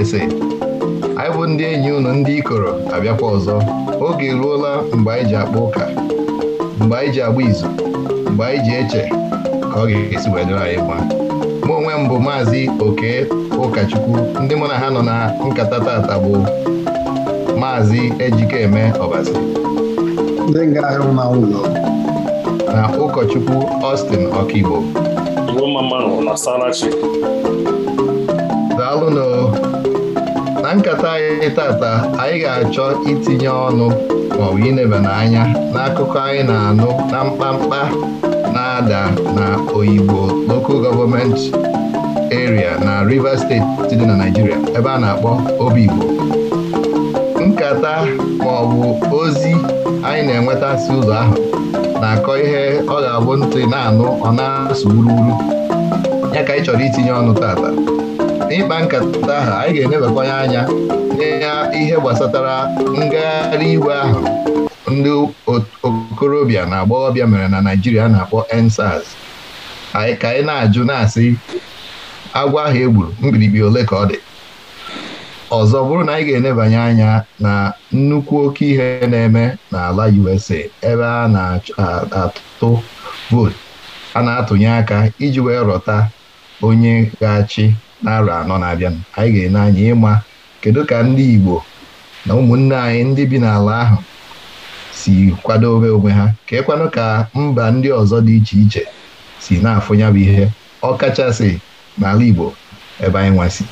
USA anyị bụ ndị enyi unu ndị ikoro abịakwa ọzọ oge eruola mgbe anyị ji akpa ụka mgbe anyị ji agba izu mgbe anyị ji eche ka ọ ga-esi wee dịrị anyị mma mụ onwe m bụ maazị oke ụkọchukwu ndị mụ na ha nọ na nkata tata bụ maazị ejikeme ọbazi na ụkọchukwu Austin Ọkigbo daalụnụ na nkata anyị tata anyị ga-achọ itinye ọnụ maọbụ inebana anya n'akụkọ anyị na-anụ na mkpamkpa na-ada na oyibo local government area na Rivers steeti dị na Naịjirịa ebe a na-akpọ Obigbo nkata maọbụ ozi anyị na-enweta si ụzọ ahụ na-akọ ihe ọ ga-abụ ntị na-anụ ọ na-asụ wuruwuru ya ka anyị chọrọ itinye ọnụ tata n'ịkpa nkata ahụ anyị ga-enebakwanye anya n'ihe ihe gbasatara ngagharị igwe ahụ ndị okorobịa na agbọghọbịa mere na Naịjirịa na-akpọ nsars anyị ka anyị na-ajụ na-asị agwọ ahụ e gburu mkpirikpi ole ka ọ dị ọzọ bụrụ na anyị ga-enebanye anya na nnukwu oke ihe na-eme n'ala USA ebe a na-atụ vootu a na-atụnye aka iji wee rọta onye ga-achị na anọ na-abịa anyị ga-ene anya ịma kedu ka ndị Igbo na ụmụnne anyị ndị bi n'ala ahụ si kwadobe onwe ha ka ịkwanụ ka mba ndị ọzọ dị iche iche si na-afụnya bụ ihe ọ kachasị n'ala Igbo ebe anyị nwasị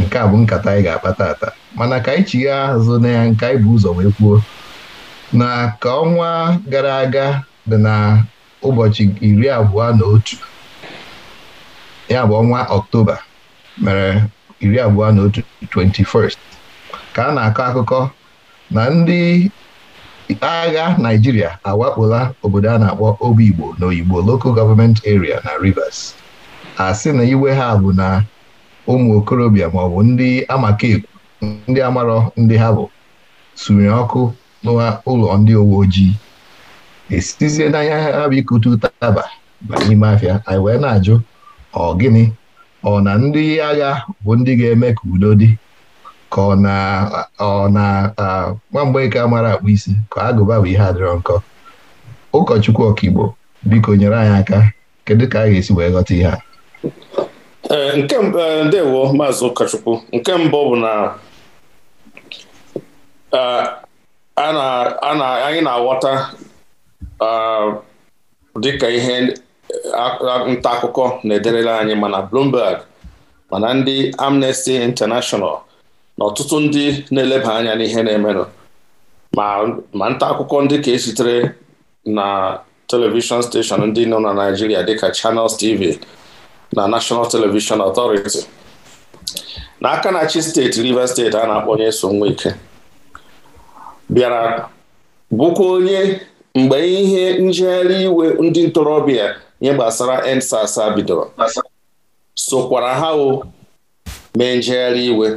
nke a bụ nkata anyị ga-akpata ata mana ka anyị chigha azụ na ya nke anyị bụ ụzọ wee kwuo na ka ọnwa gara aga dị na ụbọchị iri abụọ na otu ya bụ ọnwa Ọktoba mere iri abụọ na otu 21st ka a na-akọ akụkọ na ndị agha Naịjirịa awakpola obodo a na-akpọ igbo na Oyigbo Local Government Area na Rivers a sị na iwe ha bụ na ụmụ okorobịa maọbụ ndị amakekwu ndị amarọ ndị ha bụ sụnyere ọkụ n'ụlọ ndị uwe ojii esizie n'anya ha bụ ikute ụtaba n'ime afịa anyị wee na-ajụ ọ gịnị ọ na ndị agha bụ ndị ga-eme ka udo dị ka ọ na ọ na nwa mara akpụ isi ka agụba bụ ihe adịrọ nkọ ụkọchukwu ọkaigbo biko nyere anyị aka kedu ka a ga-esi wee ghọta ihe a e, e, ndewo maazị ụkọchukwu nke mbụ bụ na anyị na-aghọta dịka ihe nta akụkọ na-ederela anyị mana Bloomberg mana ndị Amnesty International na ọtụtụ ndị na-eleba anya n'ihe na-emenụ ma nta akụkọ ndị ka esitere na telivishọn steshọn ndị nọ na Naijiria dịka Channels TV na National Television Authority n'aka na-achị steeti Rivers steeti a na-akpọ onye so ike bịara bụkwa onye mgbe ihe njegharị iwe ndị ntorobịa nye gbasara NSASA bidoro sokwara ha o mee njegharị iwe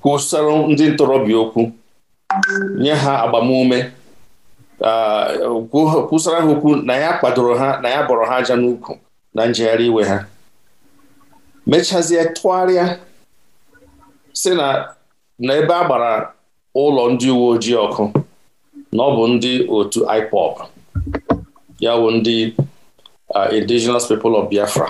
kwụsara ndị ntorobịa okwu nye ha agbamume kwụsara ha okwu na ya kwadoro ha na ya bọrọ ha aja n'ukwu na njegharị iwe ha mechazie tụgharịa si na ebe a gbara ụlọ ndị uwe ojii ọkụ na ọ bụ ndị otu IPOB ya bụ ndị uh, indigenous people of Biafra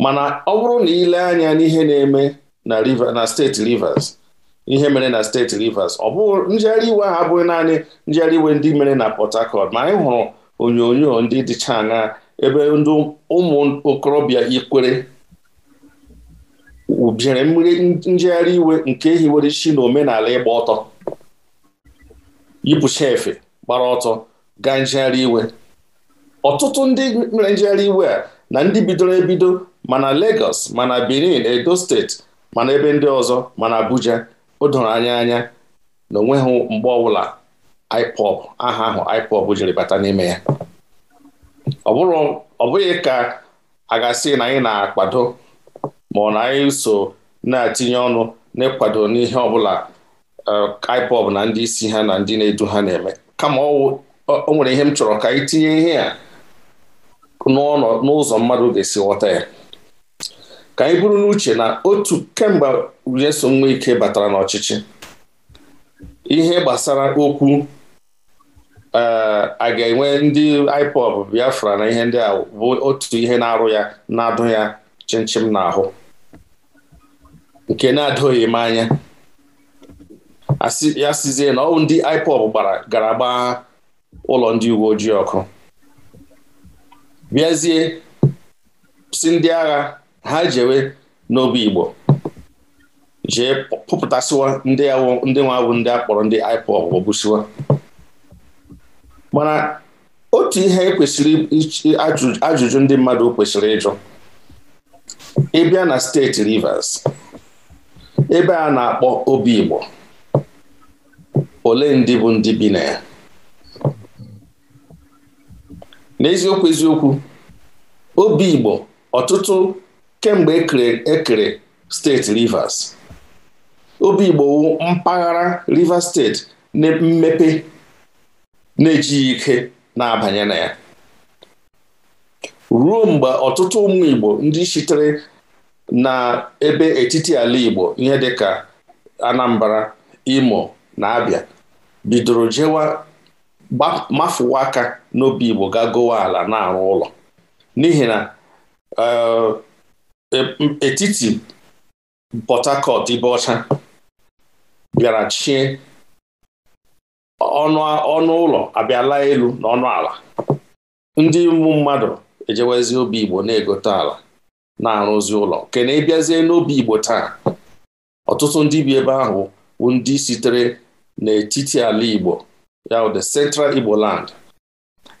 mana ọ bụrụ na ile anya n'ihe na-eme na Rivers na steeti Rivers ihe mere na steeti Rivers ọ bụ njegharị iwe ahụ abụghị naanị njegharị iwe ndị mere na Port Harcourt ma anyị hụrụ onyonyo ndị dịcha aṅa ebe ndị ụmụ okorobịa ikwere bịara mmiri njegharị iwe nke hiwere isi na omenala ịgba ọtọ yipụcha efe gbara ọtọ gaa njegharị iwe ọtụtụ ndị mere njegharị iwe a na ndị bidoro ebido mana Lagos mana Benin Edo steeti mana ebe ndị ọzọ mana Abuja o doro anya anya na onweghị mgbe ọbụla ipop aha ahụ ipop jiri bata n'ime ya ọ bụghị ka a ga na anyị na-akwado ma ọ na anyị so na-etinye ọnụ n'ịkwado n'ihe ọbụla IPOB na ndị isi ha na ndị na-edu ha na-eme kama o nwere ihe m chọrọ ka anyị tinye ihe a n'ụzọ mmadụ ga-esi ghọta ya ka anyị buru n'uche na otu kemgbe Nyesom ike batara n'ọchịchị ihe gbasara okwu eh, a ga-enwe ndị IPOB Biafra na ihe ndị a bụ otu ihe na-arụ ya na-adụ ya chịnchịm n'ahụ nke na-adụghị m anya ya sizie na ọwụ ndị IPOB gbara gara gbaa ụlọ ndị uwe ojii ọkụ bịazie si ndị agha ha jewe n'obi Igbo jee pụpụtasịwa ndị ndị nwa bụ ndị akpọrọ ndị IPOB gbagbusiwa mana otu ihe ekwesịrị ajụjụ ndị mmadụ kwesịrị ịjụ ịbịa na steeti Rivers ebe a na-akpọ obi Igbo ole ndị bụ ndị bi na ya n'eziokwu eziokwu obi Igbo ọtụtụ kemgbe ekere e steeti Rivers obi Igbo wu mpaghara Rivers steeti na mmepe na-ejighị ike na-abanye na ya ruo mgbe ọtụtụ ụmụ Igbo ndị sitere na ebe etiti ala Igbo ihe dị ka Anambra Imo na abịa bidoro jewa mafụwa aka n'obi Igbo ga gowa ala na-arụ ụlọ n'ihi na eh, etiti Port ibe ọcha bịara chie ọnụ ụlọ abịala elu na ọnụ ala ndị ụmụ mmadụ ejewezi obi Igbo na-egote ala na-arụzi ụlọ na ịbịazie n'obi Igbo taa ọtụtụ ndị bi ebe ahụ bụ ndị sitere n'etiti ala Igbo ya the Central Igbo Land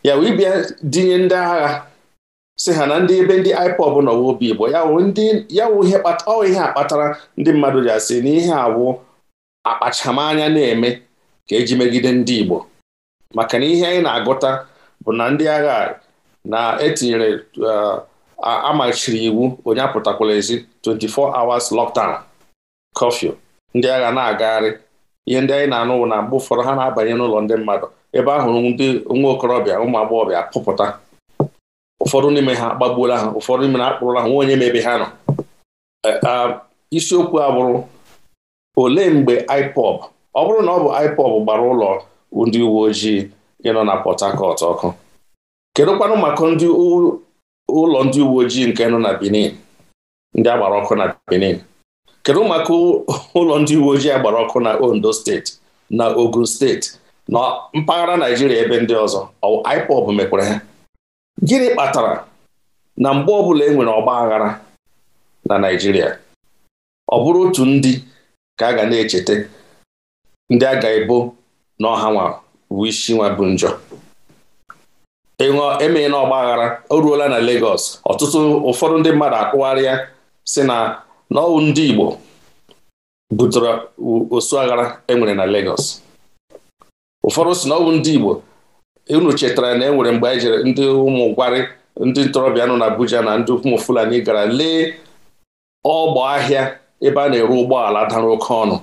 ya wee bịa dinye ndị agha si ha na ndị ebe ndị IPOB nọ obi Igbo ya wụ ihe kpatara ndị mmadụ ji asị na ihe awụ akpachamanya na-eme ka eji megide ndị Igbo maka na ihe anyị na-agụta bụ na ndị agha na-etinyere uh, amachiri iwu onye apụtakwala ezi 24 hours lockdown curfew ndị agha na-agagharị ihe ndị anyị na-anụ na mgbe ụfọdụ ha na-abanye n'ụlọ ndị mmadụ ebe ahụ ndị nwa okorobịa ụmụ agbọghọbịa pụpụta ụfọdụ n'ime ha agbagbuola ha ụfọdụ n'ime na akpụrụla ha nwa onye ma ha nọ e, isiokwu a bụrụ olee mgbe IPOB ọ bụrụ na ọ bụ IPOB gbara ụlọ ndị uwe ojii nọ na Port Harcourt ọkụ kedụkwanụ maka ụlọ ndị uwe ojii nke nọ na Benin ndị a gbara ọkụ na Benin kedu maka ụlọ ndị uwe ojii agbara ọkụ na Ondo steeti na Ogun steeti na mpaghara Naijiria ebe ndị ọzọ IPOB mekwara ha gịnị kpatara na mgbe ọbụla e nwere ọgba aghara na Naijiria ọ bụrụ otu ndị ka a ga na-echeta ndị a ga-ebo na ọha nwa bụ isi nwa bụ njọ ịṅụọ e na ọgba aghara o ruola na Lagos ọtụtụ ụfọdụ ndị mmadụ akpụgharịa si na na ndị Igbo butere osu aghara enwere na Lagos ụfọdụ si na ndị Igbo unu chetara na enwere mgbe anyị jere ndị ụmụ ndị ntorobịa nọ na Abuja na ndị ụmụ Fulani gara lee ọgbọ ahịa ebe a na-ere ụgbọala dara oke ọnụ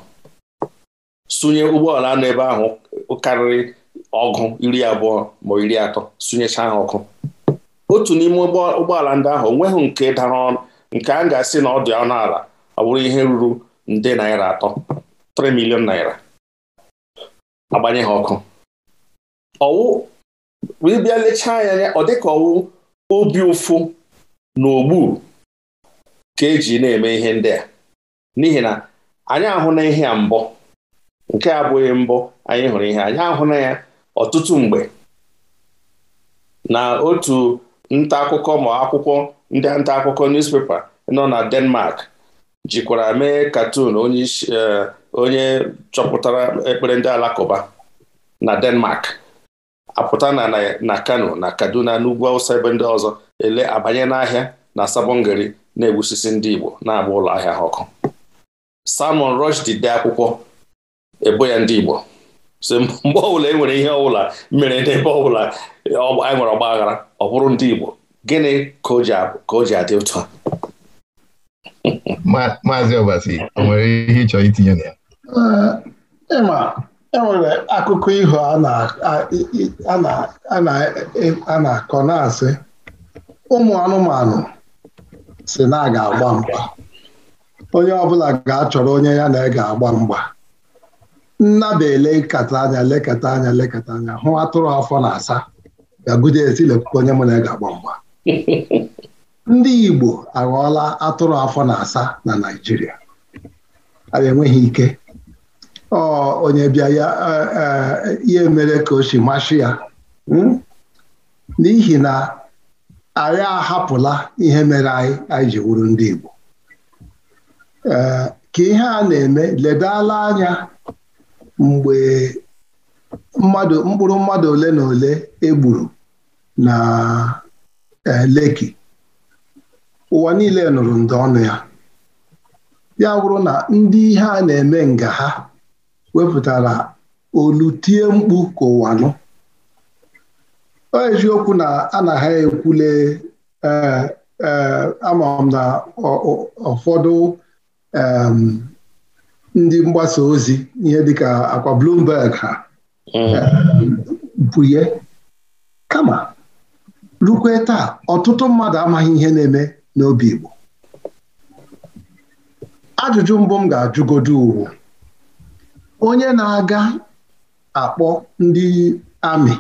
sunye ụgbọala nọ ebe ahụ karịrị ọgụ iri abụọ ma iri atọ sụnyechaa ha ọkụ otu n'ime ụgbọala ndị ahụ nweghị nke dara ọnụ. nke a ga-asị na ọ dị ọnụ ala ọ bụrụ ihe ruru nde naira atọ 3 milion naira agbanye ha ọkụ ọwụ ịbịa lechaa ya anya ọ dịka ọwụ obi ụfụ na ogbu ka eji na-eme ihe ndị a n'ihi na anyị ahụ na ihe a mbọ nke abụghị mbọ anyị hụrụ ihe anyị ahụ na ya ọtụtụ mgbe na otu nta akụkọ ma akwụkwọ ndị nta akụkọ newspaper nọ na Denmark jikwara mee katun e, onye chọpụtara ekpere ndị alakụba na Denmark apụta na na Kano na Kaduna n'ugwu Awụsa ebe ndị ọzọ ele abanye n'ahịa na Sabongari na-egbusisi ndị Igbo na-agba ụlọ ahịa ha ọkụ Salman Rushdie dee akwụkwọ ebo ya ndị Igbo so mgbe ọbụla e nwere ihe ọbụla mere n'ebe ọbụla anyị e nwere ọgba aghara ọ bụrụ ndị Igbo gịnị ka o ji adị ụtọ maazị Ọbasi o nwere ihe ịchọ itinye na ya ịma enwere akụkọ ihu e, a na-akọ na-asị ụmụ anụmanụ si na ga-agba mgba onye ọbụla ga-achọrọ onye ya na ga-agba mgba nnaba elekata anya lekata anya lekata anya hụ atụrụ afọ na asa bịagide esi lekwukwa onye mụ na ga-agba mgba ndị Igbo aghọọla atụrụ afọ na asa na Naijiria. anyị enweghị ike ọ onye bịa ya e, e, ihe mere ka o si masị ya hmm? n'ihi na anyị ahapụla ihe mere anyị anyị ji wuru ndị Igbo e, ka ihe a na-eme ledala anya mgbe mmadụ mkpụrụ mmadụ ole na ole egburu na Eh, Leki ụwa niile nụrụ ndị ọnụ ya ya bụrụ na ndị ihe a na-eme nga ha wepụtara olu tie mkpu ka ụwa nụ o eziokwu na a na ha ekwule eh, eh, ama na ụfọdụ ndị mgbasa ozi ihe dịka akwa blumberg ha bụye mm. kama rukwe taa ọtụtụ mmadụ amaghị ihe na-eme n'obi Igbo ajụjụ mbụ m ga ajụgodu uwu onye na-aga akpọ ndị amị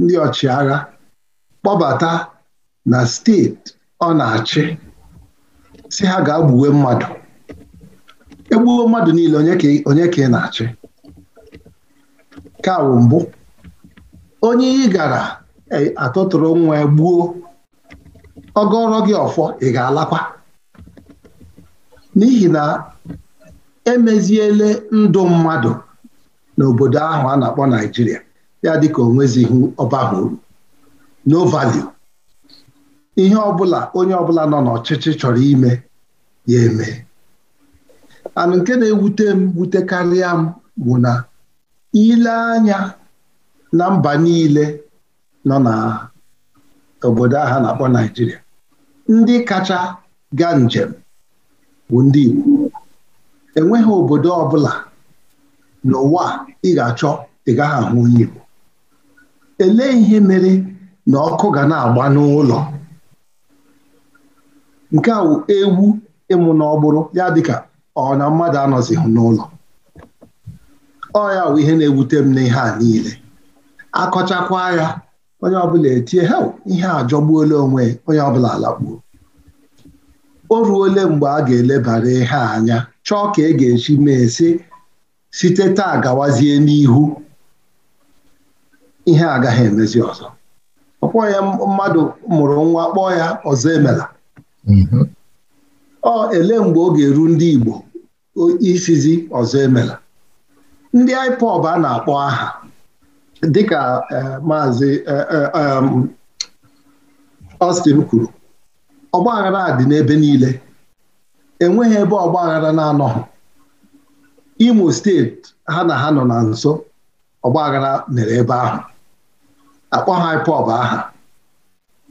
ndị ọchịagha kpọbata na steeti ọ na-achị si ha ga-agbuwe mmadụ egbuo mmadụ niile onye ka ị na-achị ka mbụ onye ị gara atụtụrụ nwa gbuo ọgọrọ gị ọfọ ị ga-alakwa n'ihi na emeziele ndụ mmadụ n'obodo ahụ a na-akpọ Naijiria ya dịka onwezighị ọbaghị uru no value ihe ọbụla onye ọbụla nọ n'ọchịchị chọrọ ime ya eme anụ nke na-ewute m wutekarịa m bụ na ile anya na mba niile nọ obodo ahụ na-akpọ Naijiria ndị kacha gaa njem bụ ndị Igbo enweghị obodo ọbụla n'ụwa ị ga-achọ ị gaghị ahụ onye Igbo elee ihe mere na ọkụ ga na-agba n'ụlọ nke a wụ ewu ịmụ na ọgbụrụ ya dịka ọ na mmadụ anọzighị n'ụlọ ọ ya bụ ihe na-ewute m n'ihe a niile akọchakwa ya onye ọbụla etie he ihe ajọgbuola onwe onye ọbụla alakpuo o ruole mgbe a ga-elebara ihe anya chọọ ka e ga-esi mee sị site taa gawazie n'ihu ihe agaghị emezi ọzọ ọkpọ ya mmadụ mụrụ nwa kpọọ ya ọzọ emela mm-hmm. ọ ele mgbe ọ ga-eru ndị Igbo isizi ọzọ emela ndị IPOB a na-akpọ aha dịka e, maazị Ọstin e, e, kwuru ọgbaghara dị n'ebe niile enweghị ebe ọgbaghara na-anọghị Imo steeti ha na ha nọ na nso ọgbaghara mere ebe ahụ akpọ ha IPOB aha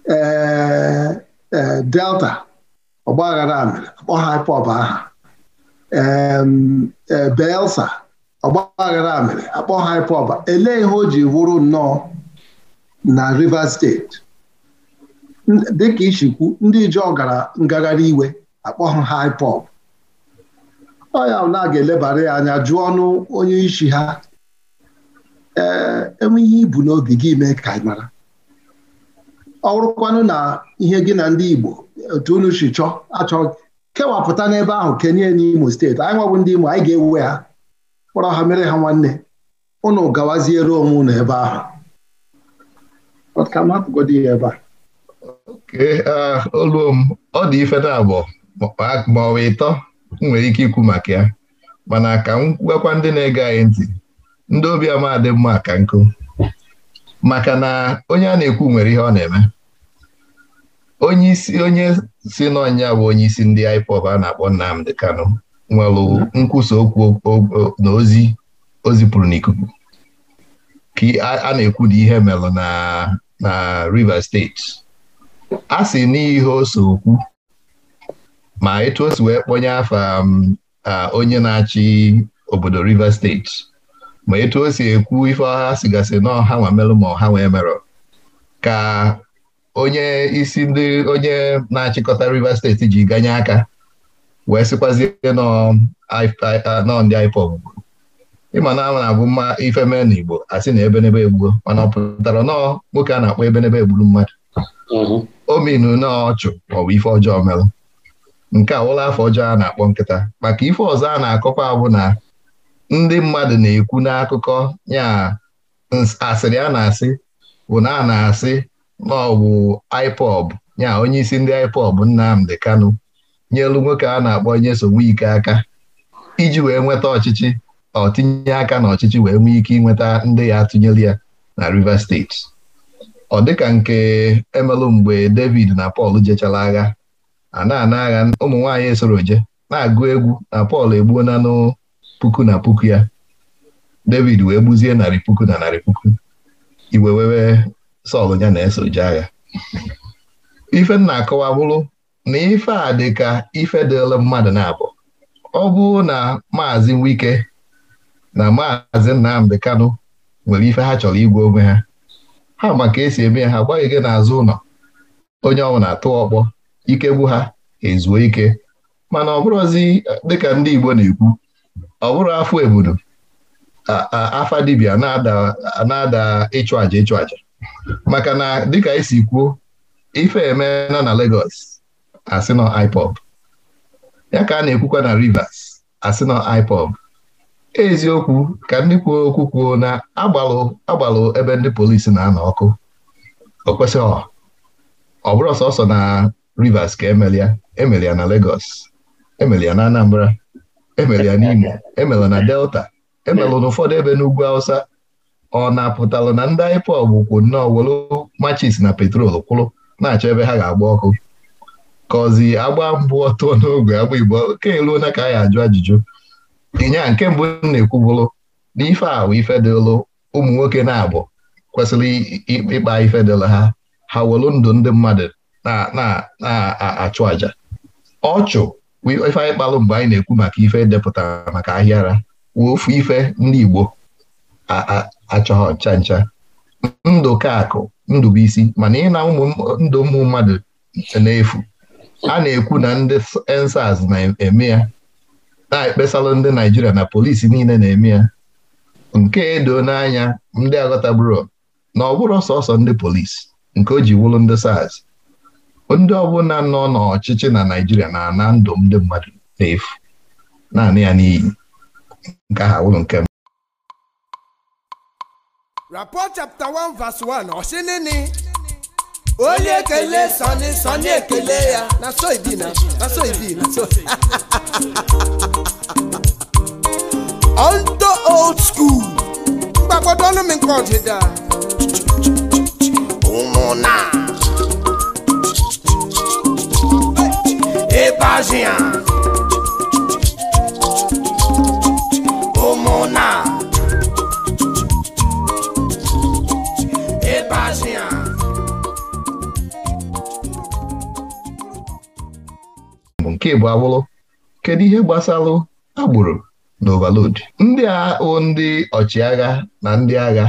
ee Delta ọgbaghara mere akpọ ha IPOB aha ee Belsa ọgbaghara mere akpọ ha ịpọba elee ihe o ji wụrụ nnọọ na Rivers steeti dịka ichikwu ndị ijọ gara ngagharị iwe akpọ ha IPOB ọ ya na ga-elebara ya anya jụọ ọnụ onye isi ha ee enwe ihe ibu n'obi gị mee ka ị mara ọ na ihe gị na ndị Igbo otu unu si chọọ achọghị kewapụta n'ebe ahụ kenye n'Imo steeti anyị nwabụ ndị Imo anyị ga ewuwe ha kpọrọ ha mere ha nwanne ụnụ gawaziere onwe ụnụ ebe ahụ ka m ya ebe a oke oluo m ọ dị ife na ma ọ bụ ịtọ m nwere ike ikwu maka ya mana ka m gwakwa ndị na-ege anyị ntị ndị obi ama dị mma ka nkụ maka na onye a na-ekwu nwere ihe ọ na-eme onye isi onye si n'ọnya bụ onye isi ndị IPOB a na-akpọ nnamdị Kanu nwere nkwusa okwu na ozi o zipụrụ n'ikuku ka a na ekwu dị ihe melụ na na Rivers steeti a sị n'ihe ose okwu ma etu o si wee kpọnye um, onye na-achị obodo River steeti ma etu o si ekwu ife ọha sigasị na ọha nwa merụ ma ọha nwa merụ ka onye isi ndị onye na-achịkọta River steeti ji ganye aka wee sịkwazie nọ ndị IPOB ịma na ama na-abụ mma ife mee na Igbo asị na ebenebe egbuo mana ọ pụtara nọọ nwoke a na-akpọ ebenebe egburu mmadụ mm-hmm. o nọọ ọchụ maọbụ ife ọjọọ merụ nke a ụlọ afọ ọjọọ a na-akpọ nkịta maka ife ọzọ a na-akọkwa abụ na ndị mmadụ na-ekwu n'akụkọ ya asịrị a na-asị bụ na a na-asị na ọ bụ IPOB ya onye isi ndị IPOB Nnamdi Kanu nyelu nwoke a na-akpọ nyesowe ike aka iji wee nweta ọchịchị ọ aka na ọchịchị wee nwee ike ịnweta ndị ya atụnyere ya na Rivers steeti ọ dịka nke emelụ mgbe David na Pọl jechara agha a na-ana agha ụmụ nwaanyị esoro je na-agụ egwu na Pọl egbuo nanụ puku na puku ya David wee gbuzie narị puku na narị puku iwe Sọl ya na-eso agha ife m na na ife a dịka ife dịla mmadụ na-abụ ọ bụrụ na maazị Wike na maazị Nnamdi Kanu nwere ife ha chọrọ igwe onwe ha ha maka esi eme ha gbaghị gị n'azụ ụlọ onye ọbụla atụ ọkpọ ikegbu ha ezuo ike mana ọ bụrụzi dịka ndị Igbo na-ekwu ọ bụrụ afọ ebudo afa dibia na-ada ịchụ àjà ịchụ àjà maka na dịka esi kwuo ife emeela na legos asị nọ IPOB ya ka a na-ekwukwa na Rivers asị nọ IPOB eziokwu ka ndị kwuo okwu kwuo na agbalụ agbalụ ebe ndị polisi na-anọ ọkụ o kwesịghị ọ bụrụ ọsọsọ na Rivers ka emelia emelia na Lagos emelia na Anambra emelia n'Imo emela na Delta emelụ n'ụfọdụ ebe n'ugwu Hausa ọ na-apụtalụ na ndị IPOB kwu nnọọ welu machis na petrol kwụrụ na-achọ ebe ha ga-agba ọkụ kọzi agba mbụ ọtọ n'ogwe agba igbo oke eluo onye ka anyị ajụ ajụjụ ịnya nke mbụ na-ekwu bụrụ na ife ahụ ife ụmụ nwoke na-abụ kwesịrị ịkpa ife ha ha welụ ndụ ndị mmadụ na-achụ àjà ọchụ ife anyị kpalụ mgbe anyị na-ekwu maka ife depụtara maka ahịara wee ofu ife ndị igbo achọghọ ncha ncha ndụ ka akụ ndụ bụ isi mana ịna na ụmụ ndụ ụmụ mmadụ na-efu a na-ekwu na ndị ensas na-eme ya na-ekpesalụ ndị Naijiria na polisi niile na-eme ya nke edo n'anya ndị aghọtaburo na ọ bụrụ sọsọ ndị polisi nke o ji ndị sars ndị ọbụla nọ n'ọchịchị na Naijiria na ana ndụ ndị mmadụ na-efu naanị ya n'iyi nke aha wụrụ nke mbụ Rapport 1 verse 1 ọ nịnị onye ekele sọni sọni ekele ya na so ibi na na so ibi na so ondo old school mgbagwodo ọnụ m nke ọdịda ụmụna ịbazi ya ụmụna nke bụ abụrụ kedu ihe gbasalụ agbụrụ na ovalod ndị a o ndị ọchịagha na ndị agha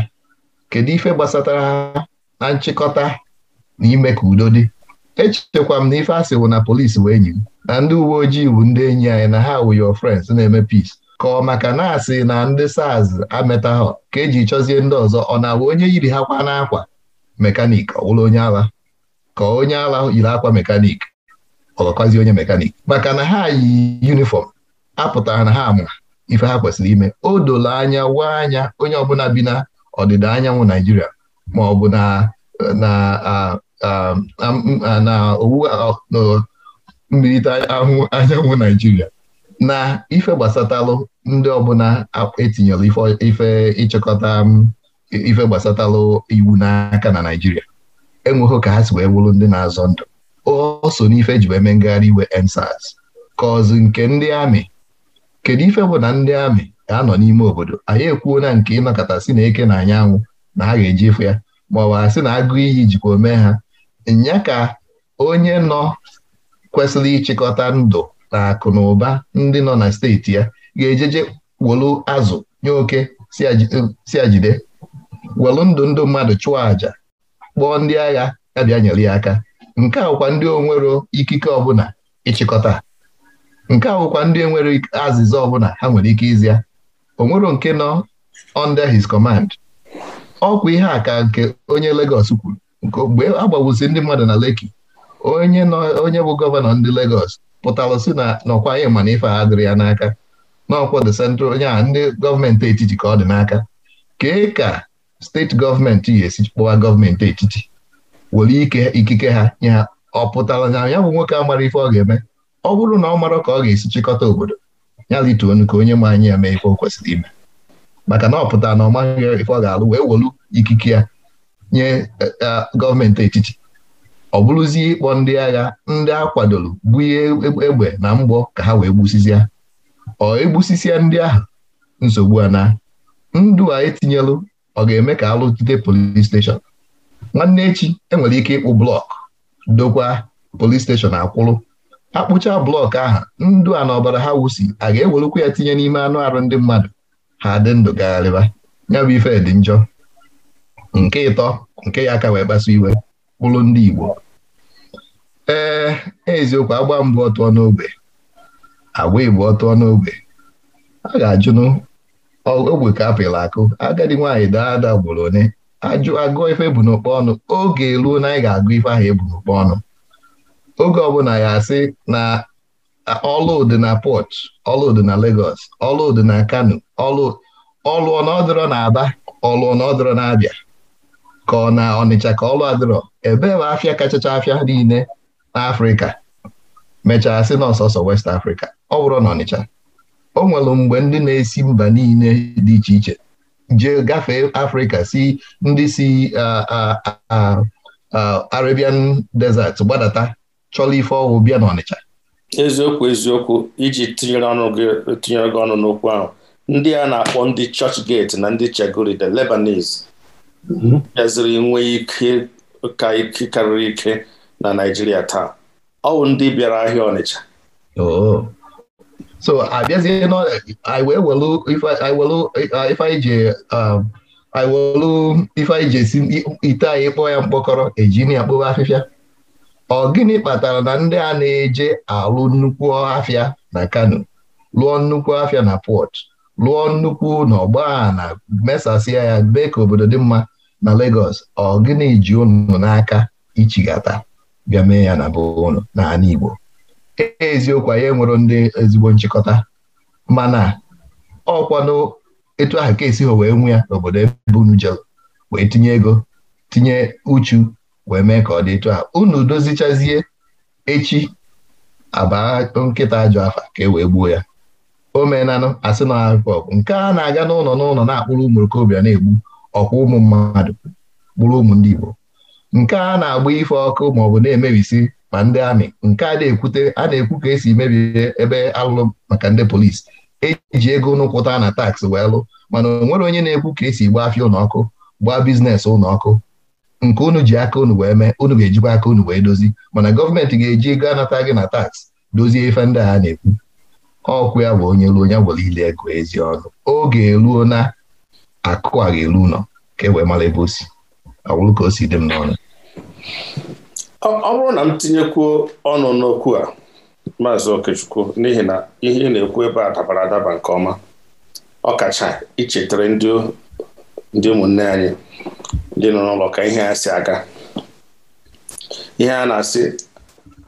kedu ife gbasatara ha na nchịkọta na ime ka udo dị echekwa m na ife asị wụ na polisi wee enyi m na ndị uwe ojii bụ ndị enyi anyị na ha wụ your friends na-eme peace ka ọ maka na asị na ndị saz ameta ha ka eji chọzie ndị ọzọ ọ na-awụ onye yiri ha kwa n'akwa mekanik ọ wụrụ onye agha ka onye ala yiri akwa mekanik ọlọkwazi onye mekanik maka na ha yi yunifọm apụtara na ha ma ife ha kwesịrị ime o dolo anya wa anya onye ọbụla bi na ọdịda anyanwụ naijiria ma ọ bụ na owu mmirita anyanwụ naijiria na ife gbasatalụ ndị ọbụla etinyere ife ịchịkọta ife gbasatalụ iwu n'aka na naijiria enweghị ka ha si wee wụrụ ndị na-azọ ndụ o so n'ife ji wee mee ngagharị iwe ensas kọzụ nke ndị amị kedu ife bụ na ndị amị ga-anọ n'ime obodo anyị ekwuo na nke ịnọkọta si na eke na anyanwụ na ha ga-eji ịfụ ya ma ọ sị na agụ iyi jikwa omee ha nya ka onye nọ kwesịrị ịchịkọta ndụ na akụ na ụba ndị nọ na steeti ya ga-ejeje welu azụ nye oke si ajide welu ndụ ndụ mmadụ chụọ àjà kpọọ ndị agha ya bịa nyere ya aka nke awụkwa ndị onwero ikike ọbụla ịchịkọta nke awụkwa ndị enwere azịza ọbụla ha nwere ike izia onwero nke nọ under his command ọkwa ihe a ka nke onye legos kwuru mgbe agbagbusi ndị mmadụ na Lekki onye onye bụ gọvanọ ndị legos pụtara si na nọkwa anyị mana ife ha ya n'aka n'ọkwa the central onye a ndị gọọmenti etiti ka ọ dị n'aka kee ka steeti gọọmenti yi esi kpọwa gọọmenti etiti were ike ikike ha nye ha ọ pụtara na ya bụ nwoke a mara ife ọ ga-eme ọ bụrụ na ọ mara ka ọ ga-esi chịkọta obodo ya lituonu ka onye ma anyị ya mee ife o kwesịrị ime maka na ọ pụtara na ọ maghị ife ọ ga-alụ wee welu ikike ya nye e, e, gọọmenti etiti ọ bụrụzie ịkpọ ndị agha ndị a kwadoro bunye egbe na mgbọ ka ha wee gbusisia ọ egbusisia ndị ahụ nsogbu a na ndụ a etinyelụ ọ ga-eme ka alụtite polis steshọn nwanne echi enwere ike ịkpụ blọkụ dokwa polis steshọn akwụrụ akpụcha blọkụ ahụ ndụ a na ọbara ha wusi a ga-ewerukwa ya tinye n'ime anụ arụ ndị mmadụ ha dị ndụ gagharịba ya bụ ife dị njọ nke ịtọ nke ya aka wee kpasu iwe kpụrụ ndị Igbo ee eziokwu agba mbụ ọtụọ n'ogbe agwa Igbo ọtụọ n'ogbe a ga-ajụnụ ogbe ka apịla akụ agadi nwaanyị daa ada gboro onye ajụ agụọ ife bụ n'okpo ọnụ oge eruo na anyị ga-agụ ife ahụ ebu n'okpo ọnụ oge ọbụla ya asị na ọlụdị na port ọlụdị na Lagos ọlụdị na Kano ọlụọ na na Aba ọlụọ na na Abịa ka ọ na Ọnịcha ka ọlụ adịrọ ebee bụ afịa kachacha afịa niile n'Afrịka mechaa sị n'ọsọsọ West Africa ọ bụrụ na Ọnịcha o nwere mgbe ndị na-esi mba niile dị iche iche jee gafee afrịka si ndị si Arabian desert gbadata chọla ife ọgwụ bịa n'Ọnịcha eziokwu eziokwu iji tinyere ọnụ ọnụ n'okwu ahụ ndị a na-akpọ ndị Churchgate na ndị chegori the Lebanese bịaziri mhm. nwee ike ka ike karịrị ike na Naịjirịa taa ọ ndị bịara ahịa Ọnịcha so abịazie iwelu ife anyị ji esi ite anyị kpọọ ya mkpọkọrọ Eji ya akpụba afịfịa ọ gịnị kpatara na ndị a na-eje alụ nnukwu afịa na Kano lụọ nnukwu afịa na pọt lụọ nnukwu na ọgba na mesasịa ya mee ka obodo dị mma na Lagos ọ gịnị ji unu n'aka ichigata bịa mee ya na be n'ala Igbo eziokwu anyị enwero ndị ezigbo nchịkọta mana kwado etu ahụ ka esi ha wee nwe ya n'obodo ebe unu wee tinye ego tinye uchu wee mee ka ọ dị etu ahụ unu dozichazie echi abaa nkịta ajọ afa ka e wee gbuo ya o meenanụ asị na akụkọ ọkụ nke a na-aga n'ụlọ n'ụlọ na-akpụrụ ụmụ okorobịa na-egbu ọkwa ụmụ mmadụ kpụrụ ụmụ ndị Igbo nke a na-agba ife ọkụ ma ọ bụ na-emebisi ma ndị amị nke a na-ekwute a na-ekwu ka esi mebie ebe alụlụ maka ndị polisi eji ego nkwụta na taksị wee lụ mana o nwere onye na-ekwu ka esi gbaa afịa ụlọọkụ gbaa bizinesi ụlọọkụ nke unu ji aka unu wee mee unu ga-ejikwa aka unu wee dozi mana gọọmenti ga-eji ego anata gị na taksị dozie ife ndị a na-ekwu ọkụ ya bụ onye ruo onye gwere ile ego ezi ọnụ oge eruo na akụ a ga-eru ụlọ ka e wee mara ebe o si ọ bụrụ ka o si dị m n'ọnụ ọ bụrụ na m tinyekwuo ọnụ n'okwu a maazị Okechukwu n'ihi na ihe na-ekwu ebe a dabara adaba nke ọma ọkacha ichetara ndị ụmụnne anyị ndị nọ n'ụlọ ka ihe a si aga ihe a na-asị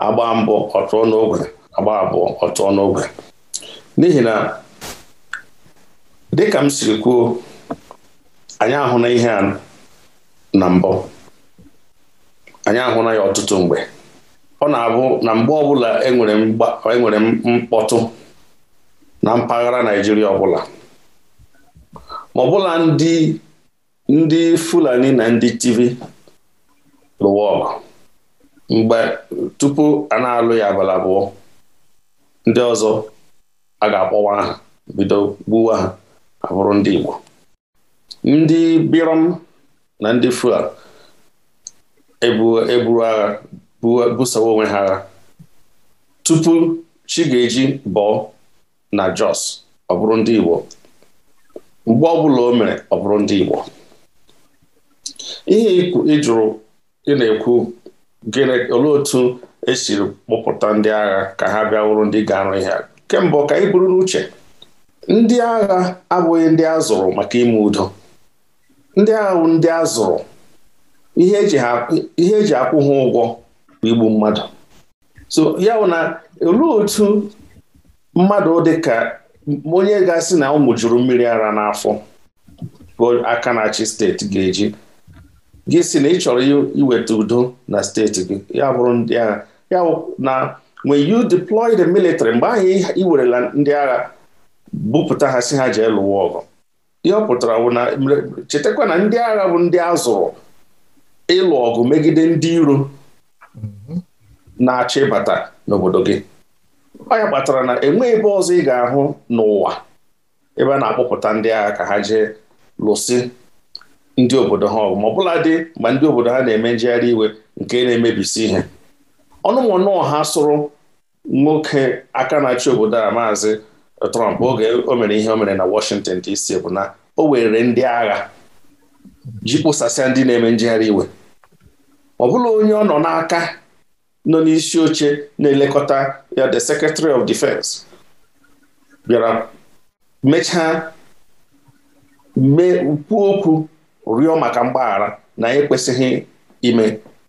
agba mbụ ọtụọ n'ogwe agba abụọ ọtụọ n'ogwe n'ihi na dịka m siri kwuo anyị ahụ na ihe a na mbụ anyị ahụla ya ọtụtụ mgbe ọ na-abụ na mgbe ọbụla enwere e mkpọtụ na mpaghara Naijiria ọbụla ma ọbụla ndị ndị Fulani na ndị tv lụwa ọgụ mgbe tupu a na-alụ ya abalị abụọ ndị ọzọ a ga-akpọwa aha bido gbuwa ha abụrụ ndị Igbo ndị Birom na ndị Fulani eburu agha busawa onwe ha agha tupu chi eji bọọ na Jos ọ bụrụ ndị Igbo mgbe ọbụla o mere ọ bụrụ ndị Igbo ihe ịjụrụ ị na-ekwu gịnị olee otu esiri kpọpụta ndị agha ka ha bịa wụrụ ndị ga-arụ ihe kemgbe ka anyị buru n'uche ndị agha abụghị ndị a zụrụ maka ime udo ndị agha bụ ndị a zụrụ ihe eji akwụ ha ụgwọ bụ igbu mmadụ so ya na olee otu mmadụ dịka onye ga-asị na ụmụ juru mmiri ara n'afọ bụ aka na steeti ga-eji gị si na ị chọrọ iweta udo na steeti gị ya bụrụ ndị agha ya na when you deploy the military mgbe ahụ iwerela ndị agha bupụta ha si ha jee lụwa ọgụ ihe ọ na chetakwa na ndị agha bụ ndị a zụrụ ịlụ ọgụ megide ndị iro mhm. na-achọ ịbata n'obodo gị ọ ya kpatara na enweghị ebe ọzọ ị ga-ahụ n'ụwa ebe a na-akpọpụta ndị agha ka ha jee lụsị ndị obodo ha ọgụ ma ọbụla dị ma ndị obodo ha na-eme njegharị iwe nke na-emebisi ihe ọnụmụnụ ha sụrụ nwoke aka na-achị obodo a maazị Trump oge o mere ihe o mere na Washington DC bụ na o were ndị agha ji kpụsasịa ndị na-eme njegharị iwe ọ bụla onye ọ nọ n'aka nọ n'isi oche na-elekọta ya the secretary of defense bịara mechaa mee kwuo okwu rịọ maka mgbaghara na ekwesịghị ime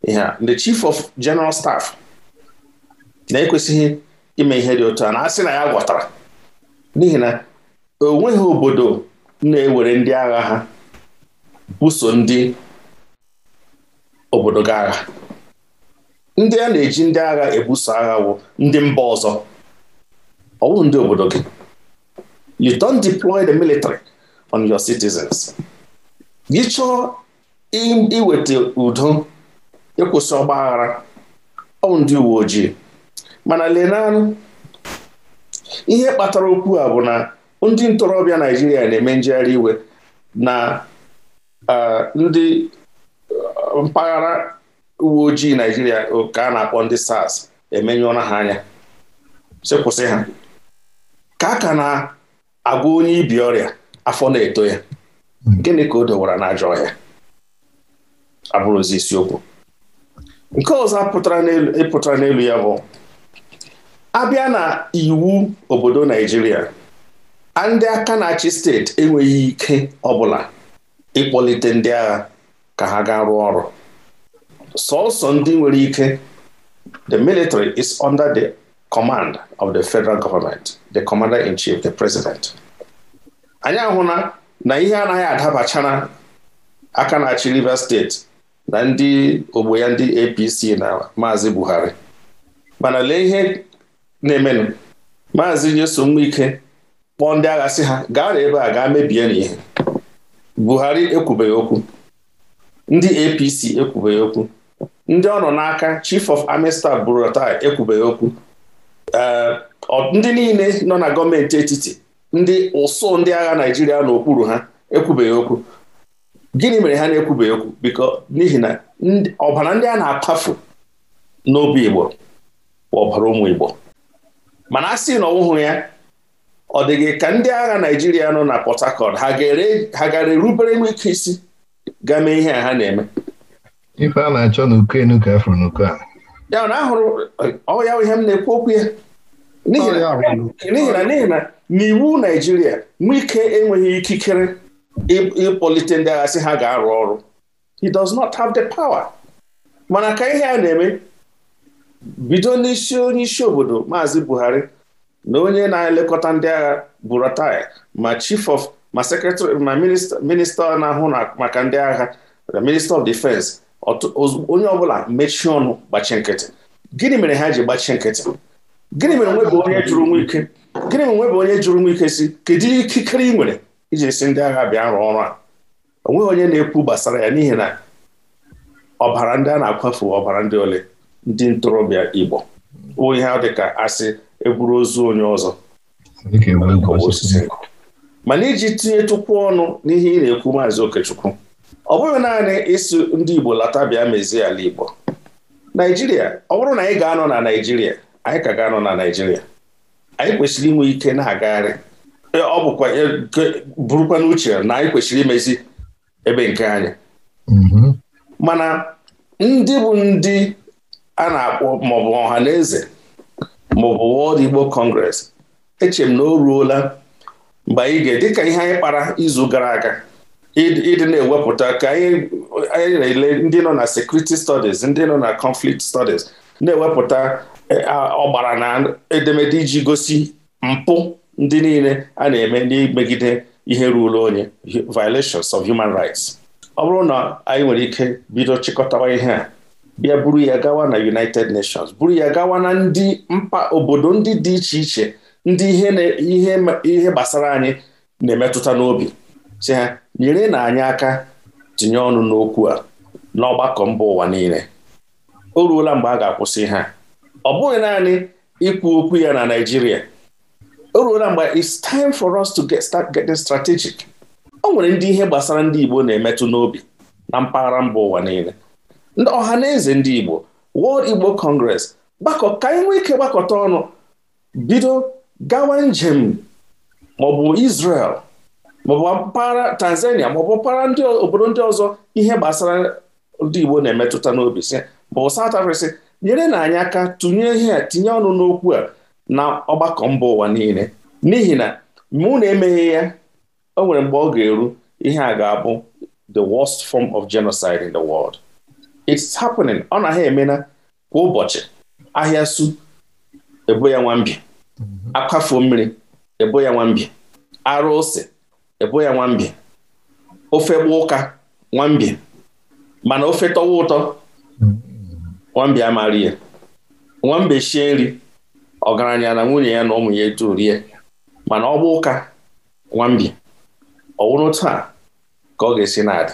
ihe a the chief of general staff na-ekwesịghị ime ihe dị otu a na-asị na ya gwọtara n'ihi na o nweghị obodo na-ewere ndị agha ha buso ndị obodo gaa ndị a na-eji ndị agha ebuso agha wụ ndị mba ọzọ ọ ndị obodo gị you don't deploy the military on your citizens gị chọọ iweta udo ịkwụsị ọgba aghara ọ ndị uwe ojii mana lenanụ ihe kpatara okwu a bụ na ndị ntorobịa Naijiria na-eme njegharị iwe na uh, ndị mpaghara uwe ojii Naijiria ka a na-akpọ ndị SARS emenye ọnụ ha anya sị kwụsị ha ka a ka na-agwa onye ibi ọrịa afọ na-eto ya gịnị ka o dowara n'ajọ ọhịa abụrụzi isiokwu nke ọzọ pụtara n'elu ya bụ abịa na iwu obodo Naijiria ndị aka na-achị steeti enweghị ike ọbụla ịkpọlite ndị agha ka ha gaa rụọ ọrụ sọsọ ndị nwere ike the military is under the command of the federal government the commander in chief the president anyị ahụla na ihe anaghị adabachara aka na-achị Rivers steeti na ndị ogbo ya ndị APC na maazị Buhari mana lee ihe na-emenụ maazị nyesom ike kpọọ ndị agha sị ha gaa na ebe a gaa mebie n'ihe Buhari ekwubeghị okwu ndị APC ekwubeghị okwu ndị ọ nọ n'aka Chief of Army Staff Buratai ekwubeghị okwu ndị niile nọ na gọọmenti etiti ndị ụsụ ndị agha Naijiria n'okpuru ha ekwubeghị okwu gịnị mere ha na-ekwubeghị okwu biko n'ihi na ọbara ndị a na-akpafu n'obi Igbo bụ ọbara ụmụ Igbo mana a sị na ọwụhụ ya ọ dịghị ka ndị agha Naijiria nọ na Port Harcourt ha gaara erubere m isi ga mee ihe a ha na-eme ife a na-achọ n'ukenu ka afụrụ n'uko a ya na ahụrụ ọ ihe m na-ekwu okwu ya n'ihi na n'ihi na n'iwu Naijiria ike enweghị ikikere ịkpọlite ndị agha sị ha ga-arụ ọrụ he does not have the power mana ka ihe a na-eme bido n'isi onye isi obodo Maazị Buhari na onye na-elekọta ndị agha Buratai ma chief of ma sekretarị na minista na-ahụ maka ndị agha na minista of defense onye ọbụla mechie ọnụ gbachie nkịtị gịnị mere ha ji gbachie nkịtị gịnị mere nwebe onye jụrụ nwa ike gịnị mere nwebe onye jụrụ nwa ike si kedu ikikere ị nwere iji si ndị agha bịa rụọ ọrụ a onweghị onye na-ekwu gbasara ya n'ihi na ọbara ndị a na-akwafu ọbara ndị ole ndị ntorobịa Igbo onye ihe dị ka asị eburu ozu onye ọzọ e osisi mana iji tinyetụkwu ọnụ n'ihe ị na-ekwu maazị Okechukwu ọ bụghị naanị ịsụ ndị Igbo lata bịa mezie ala Igbo Naijiria ọ bụrụ na anyị ga-anọ na Naijiria anyị ka ga-anọ na Naijiria anyị kwesịrị inwe ike na-agagharị e, ọ bụkwa e, burukwa n'uche na anyị kwesịrị imezi ebe nke anyị mm-hmm. mana ndị bụ ndị a na-akpọ maọbụ ọha na eze maọbụ wọd Igbo Congress eche m na o ruola mgbe anyị ga ka ihe anyị kpara izu gara aga ịdị na-ewepụta ka anyị na-ele ndị nọ na sekuriti studies ndị nọ na conflict studies na-ewepụta e, ọgbara na edemede iji gosi mpụ ndị niile a na-eme n'imegide ihe ruru onye violations of human rights ọ bụrụ na anyị nwere ike bido chịkọtawa ihe a bịa buru ya gawa na United Nations buru ya gawa na ndị mpa obodo ndị dị iche iche ndị ihe ihe gbasara anyị na-emetụta n'obi si ha nyere na anyị aka tinye ọnụ n'okwu a n'ọgbakọ mba ụwa niile o ruola mgbe a ga-akwụsị ha ọ bụghị naanị ikwu okwu ya na Naịjirịa o ruola mgbe it's time for us to get start getting strategic o nwere ndị ihe gbasara ndị Igbo na-emetụ n'obi na mpaghara mba ụwa niile ndị ọha na eze ndị Igbo World Igbo Congress gbakọ ka anyị nwee ike gbakọta ọnụ bido gawa njem maọbụ Israel maọbụ mpaghara Tanzania maọbụ mpaghara ndị obodo ndị ọzọ ihe gbasara ndị Igbo na-emetụta n'obi sị bụ South Africa sị nyere na anyị aka tụnye ihe a tinye ọnụ n'okwu a na ọgbakọ mba ụwa niile n'ihi na mụ na-emeghe ya o nwere mgbe ọ ga-eru ihe a ga-abụ the worst form of genocide in the world it's happening ọ na ha emena kwa ụbọchị ahịa su ebo ya nwambi Mm-hmm. Akwafo mmiri ebo ya nwambe arụ ose ebo ya nwambe ofe gba ụka nwambịa mana ofe tọwa ụtọ mm-hmm. nwambịa amaghị ihe. shie nri ọgaranya na nwunye ya na ụmụ ya etu rie mana ọ ụka nwambe ọ wụrụ taa ka ọ ga-esi na-adị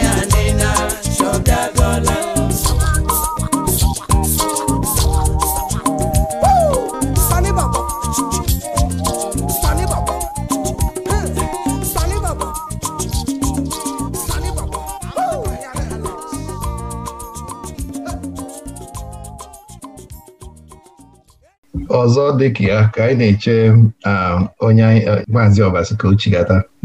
dị ka ya ka anyị na-eche onye maazị ọbasi ka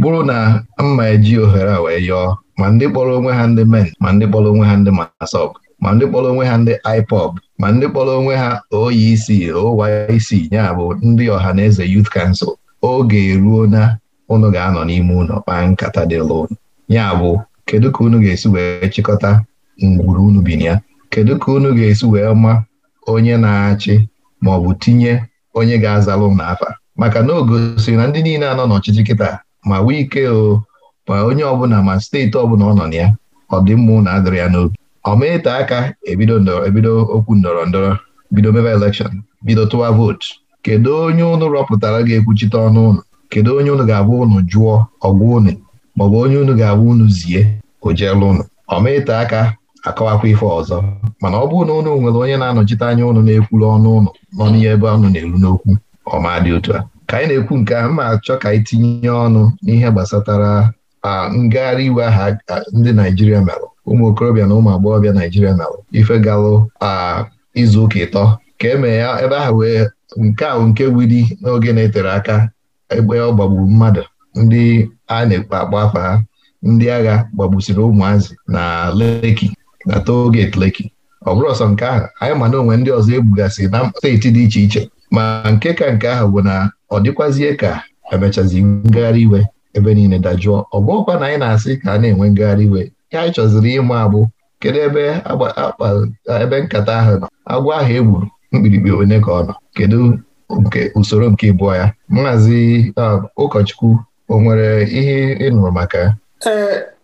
bụrụ na mma eji ohere a wee yọọ ma ndị kpọrọ onwe ha ndị men ma ndị kpọrọ onwe ha ndị masọb ma ndị kpọrọ onwe ha ndị IPOB ma ndị kpọrọ onwe ha OEC OYC ya bụ ndị ọha na eze Youth Council oge eruo na unu ga-anọ n'ime ụlọ kpaa nkata dị lon ya bụ kedu ka unu ga-esi wee chịkọta ngwuru unu bi na ya kedu ka unu ga-esi wee ma onye na-achị ma ọ bụ tinye onye ga-azalụ m n'afa maka na o gosiri na ndị niile anọ n'ọchịchị kịta ma ike o ma onye ọbụla ma steeti ọbụla ọ nọ na ya ọ dị mma na adịrị ya n'obi ọ aka ebido ebido okwu ndọrọ ndọrọ bido mebe elekshọn bido tụwa vootu kedu onye ụnụ rọpụtara ga-ekwuchite ọnụ ụnụ kedu onye ụnụ ga-abụ ụnụ jụọ ọgwụ unu maọbụ onye ụnụ ga-abụ ụnụ zie o jeelu unu aka akọwakwa ife ọzọ mana ọ bụrụ na ụnụ nwere onye na-anọchite anya ụnụ na-ekwuru ọnụ ụnụ nọ n'ihe ebe ọnụ na-eru n'okwu ọma dị otu a ka anyị na-ekwu nke a mma achọ ka anyị tinye ọnụ n'ihe gbasatara ngagharị iwe aha ndị Naijiria merụ ụmụ okorobịa na ụmụ agbọghọbịa Naijiria merụ ife galụ izu ụka ịtọ ka eme ya ebe ahụ wee nke ahụ nke wuli n'oge na-etere aka ebe ọ gbagburu mmadụ ndị a na-ekpe akpa afa ha ndị agha gbagbusiri ụmụazị na Leki na toll gate ọ bụrụ ọsọ nke ahụ anyị ma na onwe ndị ọzọ egbugasị na steeti dị iche iche ma nke ka nke ahụ bụ na ọ dịkwazie ka emechazi ngagharị iwe ebe niile dajụọ ọ bụọkwa na anyị na-asị ka a na-enwe ngagharị iwe ya anyị chọziri ịma abụ kedu ebe ebe nkata ahụ nọ agwọ ahụ e gburu mkpirikpi onye ka ọ nọ kedu nke usoro nke ịbụọ ya maazị um, ụkọchukwu o nwere ihe ị nụrụ maka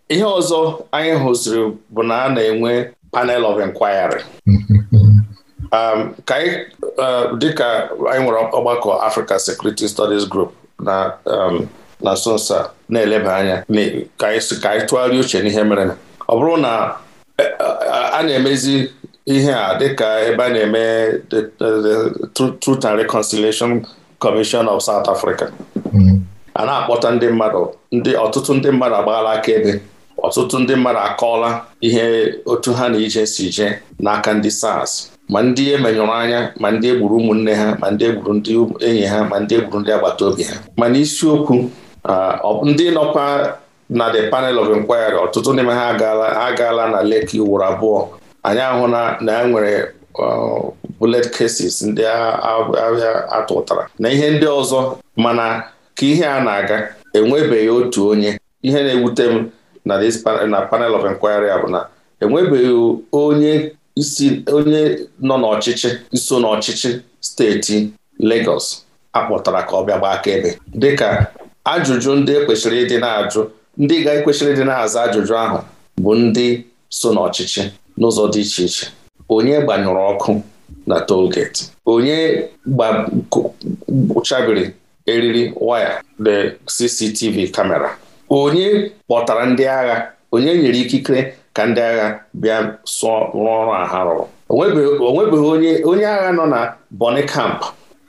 ihe ọzọ anyị hụziri bụ na a na-enwe panel of inquiry um, ka anyị uh, dịka anyị nwere ọgbakọ Africa Security Studies Group na um, na nsonso na-eleba anya ka anyị tụgharịa uche n'ihe mere ọ bụrụ na e, a na-emezi ihe a dịka ebe a na-eme Truth and Reconciliation Commission of South Africa mm. a na-akpọta ndị mmadụ ndị ọtụtụ ndị mmadụ agbaala akaebe ọtụtụ ndị mmadụ akọọla ihe otu ha na ije si jee n'aka ndị SARS ma ndị emenyụrụ anya ma ndị egburu ụmụnne ha ma ndị egburu ndị enyi ha ma ndị egburu ndị agbata obi ha mana isiokwu uh, ndị nọkwa na the panel of inquiry ọtụtụ n'ime ha agaala na leki ugboro abụọ anyị ahụ na e nwere uh, bullet cases ndị ahịa atụtara na ihe ndị ọzọ mana ka ihe a na-aga enwebeghị otu onye ihe na-ewute m na this panel of inquiry bụ na enwebeghị onye onye nọ n'ọchịchị iso n'ọchịchị steeti Lagos akpọtara ka ọ bịa gbaa akaebe dịka ajụjụ ndị ekwesịrị ịdị na ndị ga-ekwesịrị ịdị na ajụjụ ahụ bụ ndị so n'ọchịchị n'ụzọ dị iche iche onye gbanyụrụ ọkụ na tolgeti onye gbachabiri eriri waya the CCTV kamera onye kpọtara ndị agha onye nyere ikikere ka ndị agha bịa sụọ rụọ ọrụ a ha rụrụ onwebeghị onye onye agha nọ na bọni kamp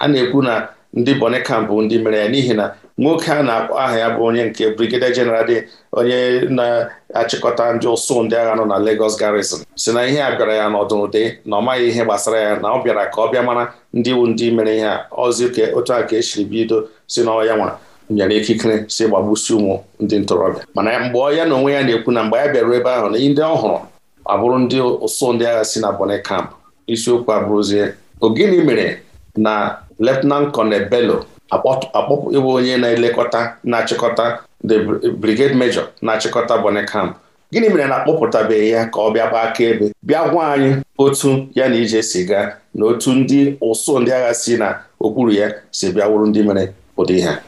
a na-ekwu na ndị bọni kamp bụ ndị mere ya n'ihi na nwoke a na-akpọ aha ya bụ onye nke brigadier general dị onye na-achịkọta ndị ụsụ ndị agha nọ na Lagos garrison si na ihe a bịara ya n'ọdụnụde na ọ maghị ihe gbasara ya na ọ bịara ka ọ bịa mara ndị wu ndị mere ihe a ozi otu a ka esiri bido si n'ọya nwa nyere ikikere si gbagbusi ụmụ ndị ntorobịa mana mgbe ọ ya na onwe ya na-ekwu na mgbe ya bịara ebe ahụ na ndị ọhụrụ abụrụ ndị ụsụ ndị agha si na Bonny Camp isiokwu abụrụzie ogini mere na Lieutenant Colonel Bello akpọpụ ịbụ onye na-elekọta na-achịkọta the brigade major na-achịkọta Bonny Camp gịnị mere na akpọpụtabeghị ya ka ọ bịa gbaa ebe bịa gwa anyị otu ya na ije si gaa na otu ndị ụsụ ndị agha si na okpuru ya si bịa wụrụ ndị mere ụdị ha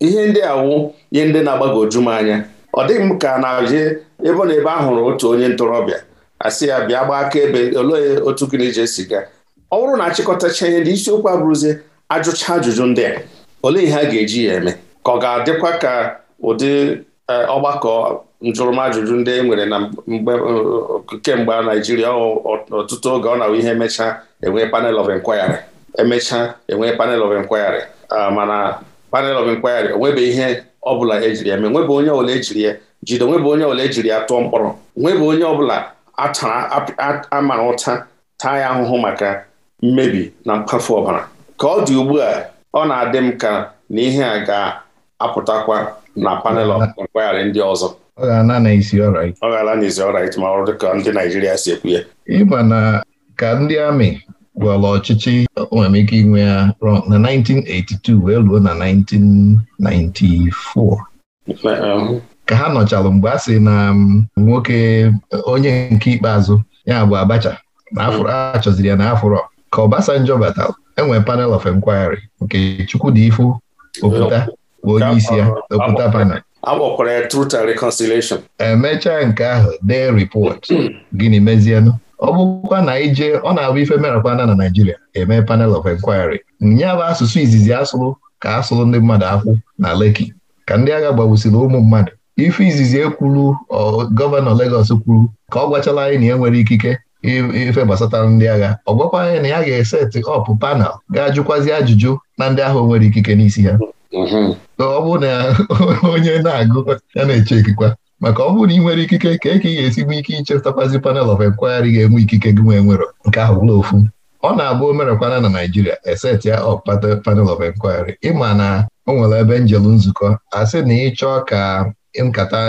ihe ndị a wụ ihe ndị na-agbagoju m anya ọ dịghị m ka na-abịa ebe na ebe a hụrụ otu onye ntorobịa asị ya bịa gbaa aka ebe olee otu gịnị je esi ọ bụrụ na achịkọtacha ihe ndị isiokwu abụrụzie ajụcha ajụjụ ndị a olee ihe a ga-eji ya eme ka ọ ga-adịkwa ka ụdị e, ọgbakọ njụrụmajụjụ ndị e nwere na kemgbe Naijiria ọtụtụ oge ọ na-awụ ihe emechaa enwee panel of enquiry emechaa enwee panel of enquiry ah, mana panel of inquiry nwebe ihe ọbụla ejiri ya mee nwebe onye ọbụla ejiri ya jide nwebe onye ọbụla ejiri ya tụọ mkpọrọ nwebe onye ọbụla amara ụta taa ya ahụhụ maka mmebi na mkpafu ọbara ka ọ dị ugbu a ọ na-adị m ka na ihe a ga-apụtakwa na panel of inquiry ndị ọzọ ọ ga-ala ọrait ma ọ dị ka ndị Naijiria si ekwu ya ịma na ka ndị amị gwụọlọ ọchịchị o inwe ya na 1982 wee ruo na 1994 um, ka ha nọchalụ mgbe a sị na um, nwoke onye nke ikpeazụ ya bụ Abacha na achọziri ya na afụrọ ka Obasanjo batalụ enwere panel of inquiry nke Chukwudifu Oputa bụ onye isi ya okwuta panel emechaa e nke ahụ dee ripọt gịnị mezienụ ọ bụkwa na ije ọ na-abụ ife merapana na Naijiria eme panel of inquiry nya bụ asụsụ izizi asụrụ ka asụrụ ndị mmadụ akwụ na Lekki ka ndị agha gbagbusiri ụmụ mmadụ ife izizi ekwuru gọvanọ Lagos kwuru ka ọ gwachala anyị na ya e nwere ikike ife gbasatara ndị agha ọ gwakwa anyị na ya ga-eseti ọpụ panel ga-ajụkwazi ajụjụ na ndị ahụ nwere ikike n'isi ha mm-hmm. ọ bụrụ na onye na-agụ ya na-eche ekikwa. maka ọ bụrụ na ị nwere ikike ka eke ka ị ga-esigbu ike ichepụtakwazi panel of inquiry ga-enwe ikike gị nwee nwero nke ahụ bụla ofu ọ na-abụ omerekwana na Naijiria eset ya ọpata panel of inquiry ịma na o nwere ebe njelu nzukọ asị na ịchọọ ka nkata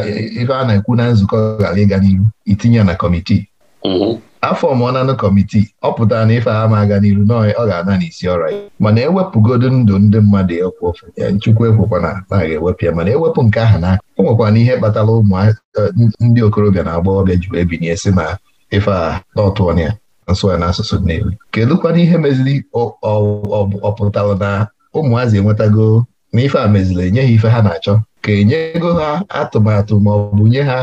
ife a na-ekwu na nzukọ ghara ịga n'ihu itinye na kọmitii mhm. afọ mọnanụ kọmitii ọ pụtara na ife ama aga n'iru na ọ ga-ana n'isi ọra mana ewepụgodu ndụ ndị mmadụ ekwu ofu Chukwu ekwekwa na na ga-ewepụ ya mana ewepụ nke aha n'aka o nwekwana ihe kpatara ụmụ eh, ndị okorobịa na agbọghọbịa ji wee binye si na ife a n'ọtụọna ya nsụ ya n'asụsụ Nnewi kedụkwana ihe meziri ọ na ụmụazị enwetago na ife a enye ha ife ha na-achọ ka enye ego ha atụmatụ ma ọ bụ nye ha